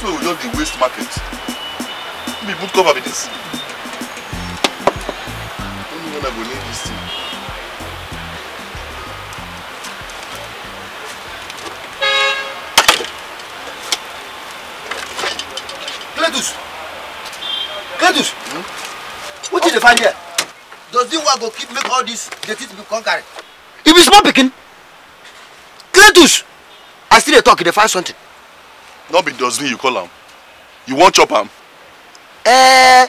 way we just dey waste market me put cover with this. Only when I go need this thing. Cletus! Cletus! Hmm? What did you find here? Does this one go keep make all this dirty to be conquered? If it's small picking, Cletus! I still dey talk, they find something. Not be does you call him. You want chop him? eh,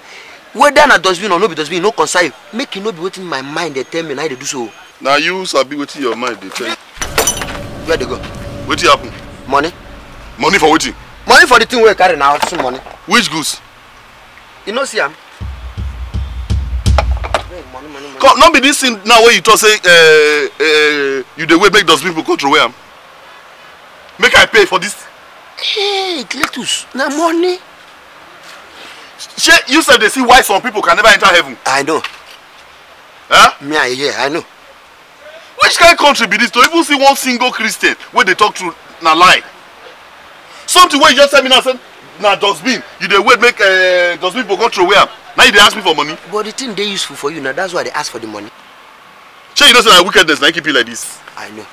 whether na dustbin or no be dustbin no concern you make you e no be wetin my mind dey tell me na i e dey do so. na you sabi wetin your mind dey tell you. where dey go. wetin happen. money. money for wetin. money for the thing wey you carry na hustle money. which goods. you no see am. come no be this thing now wey you talk say uh, uh, you dey wait make dustbin people control where am make i pay for this. hey cletus na money. She, you said they see why some people can never enter heaven. I know. Huh? Me, I hear, I know. Which kind of country be this to even see one single Christian where they talk to na lie? Something where you just tell me now, say, na dustbin, you dey wait make uh, dustbin for control where am. Now you dey ask me for money. But the thing dey useful for you now, that's why they ask for the money. Shey you know say na wickedness na e keep you like this? I know.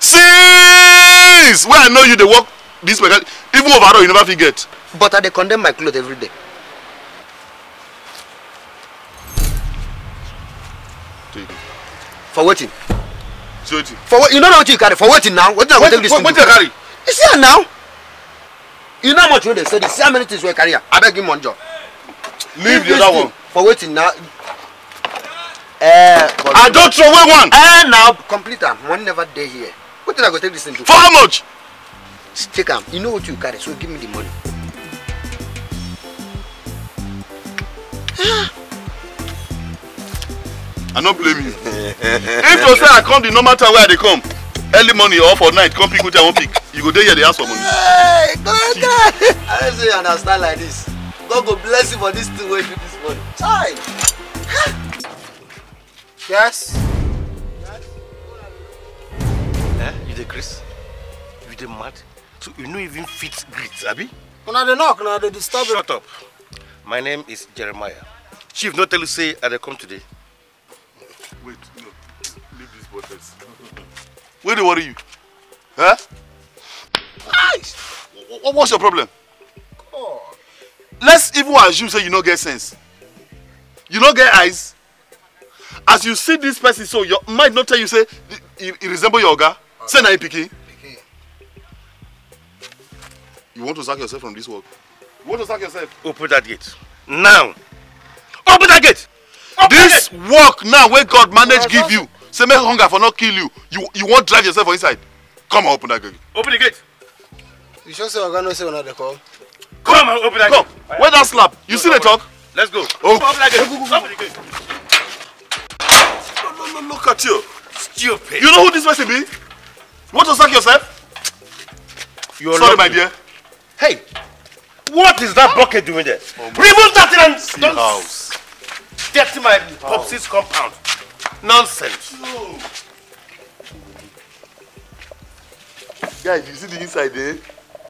Since wey I know you dey work this way. even overall you never fit get. But I dey condemn my cloth every day. for waiting, for what you no know wetin you carry for waiting now What i go take this thing do. wetin carry. you see am now. you know how much you dey study see how many things wey carry am abeg give me one job. leave the other one. for waiting now. Uh, i don't throw away one. Uh, now complete am money never dey here What wetin i go take this thing do. for how much. take am you know what you carry so give me the money. Ah. I no blame you. if you say I come the normal time where they come, early morning or for night, come pick wetin I wan pick, you go there, here dey ask for money. Hey, go God. I say you understand like this. God go bless you for this thing wey you this money. Chai. yes. Eh, you the Chris? You the mad? So you know even fit greet, Abby? Una dey knock, una dey disturb. Shut up. My name is Jeremiah. Chief no tell you say I come today. Where dey worry you huh? eh what's your problem god let's even assume say you no get sense you no get eyes as you see this person so your mind not tell you say he e resemble your oga say na him e pikin you want to sack yourself from this work you want to sack yourself open that gate now open that gate dis work now where god manage give you Say make hunger for not kill you. You you won't drive yourself inside. Come on, open that gate. Open the gate. You sure say Oga no say another call? Come on, open that Come. gate. Come. Where that slap? You no, see the talk? Let's go. Oh. Open that gate. Open the gate. look at you. Stupid. You know who this person be? You want to suck yourself? You're Sorry, lovely. my dear. Hey, what is that bucket doing there? Oh Remove that thing and don't dirty my popsies compound. Nonsense. No. Guys, you see the inside there? Eh?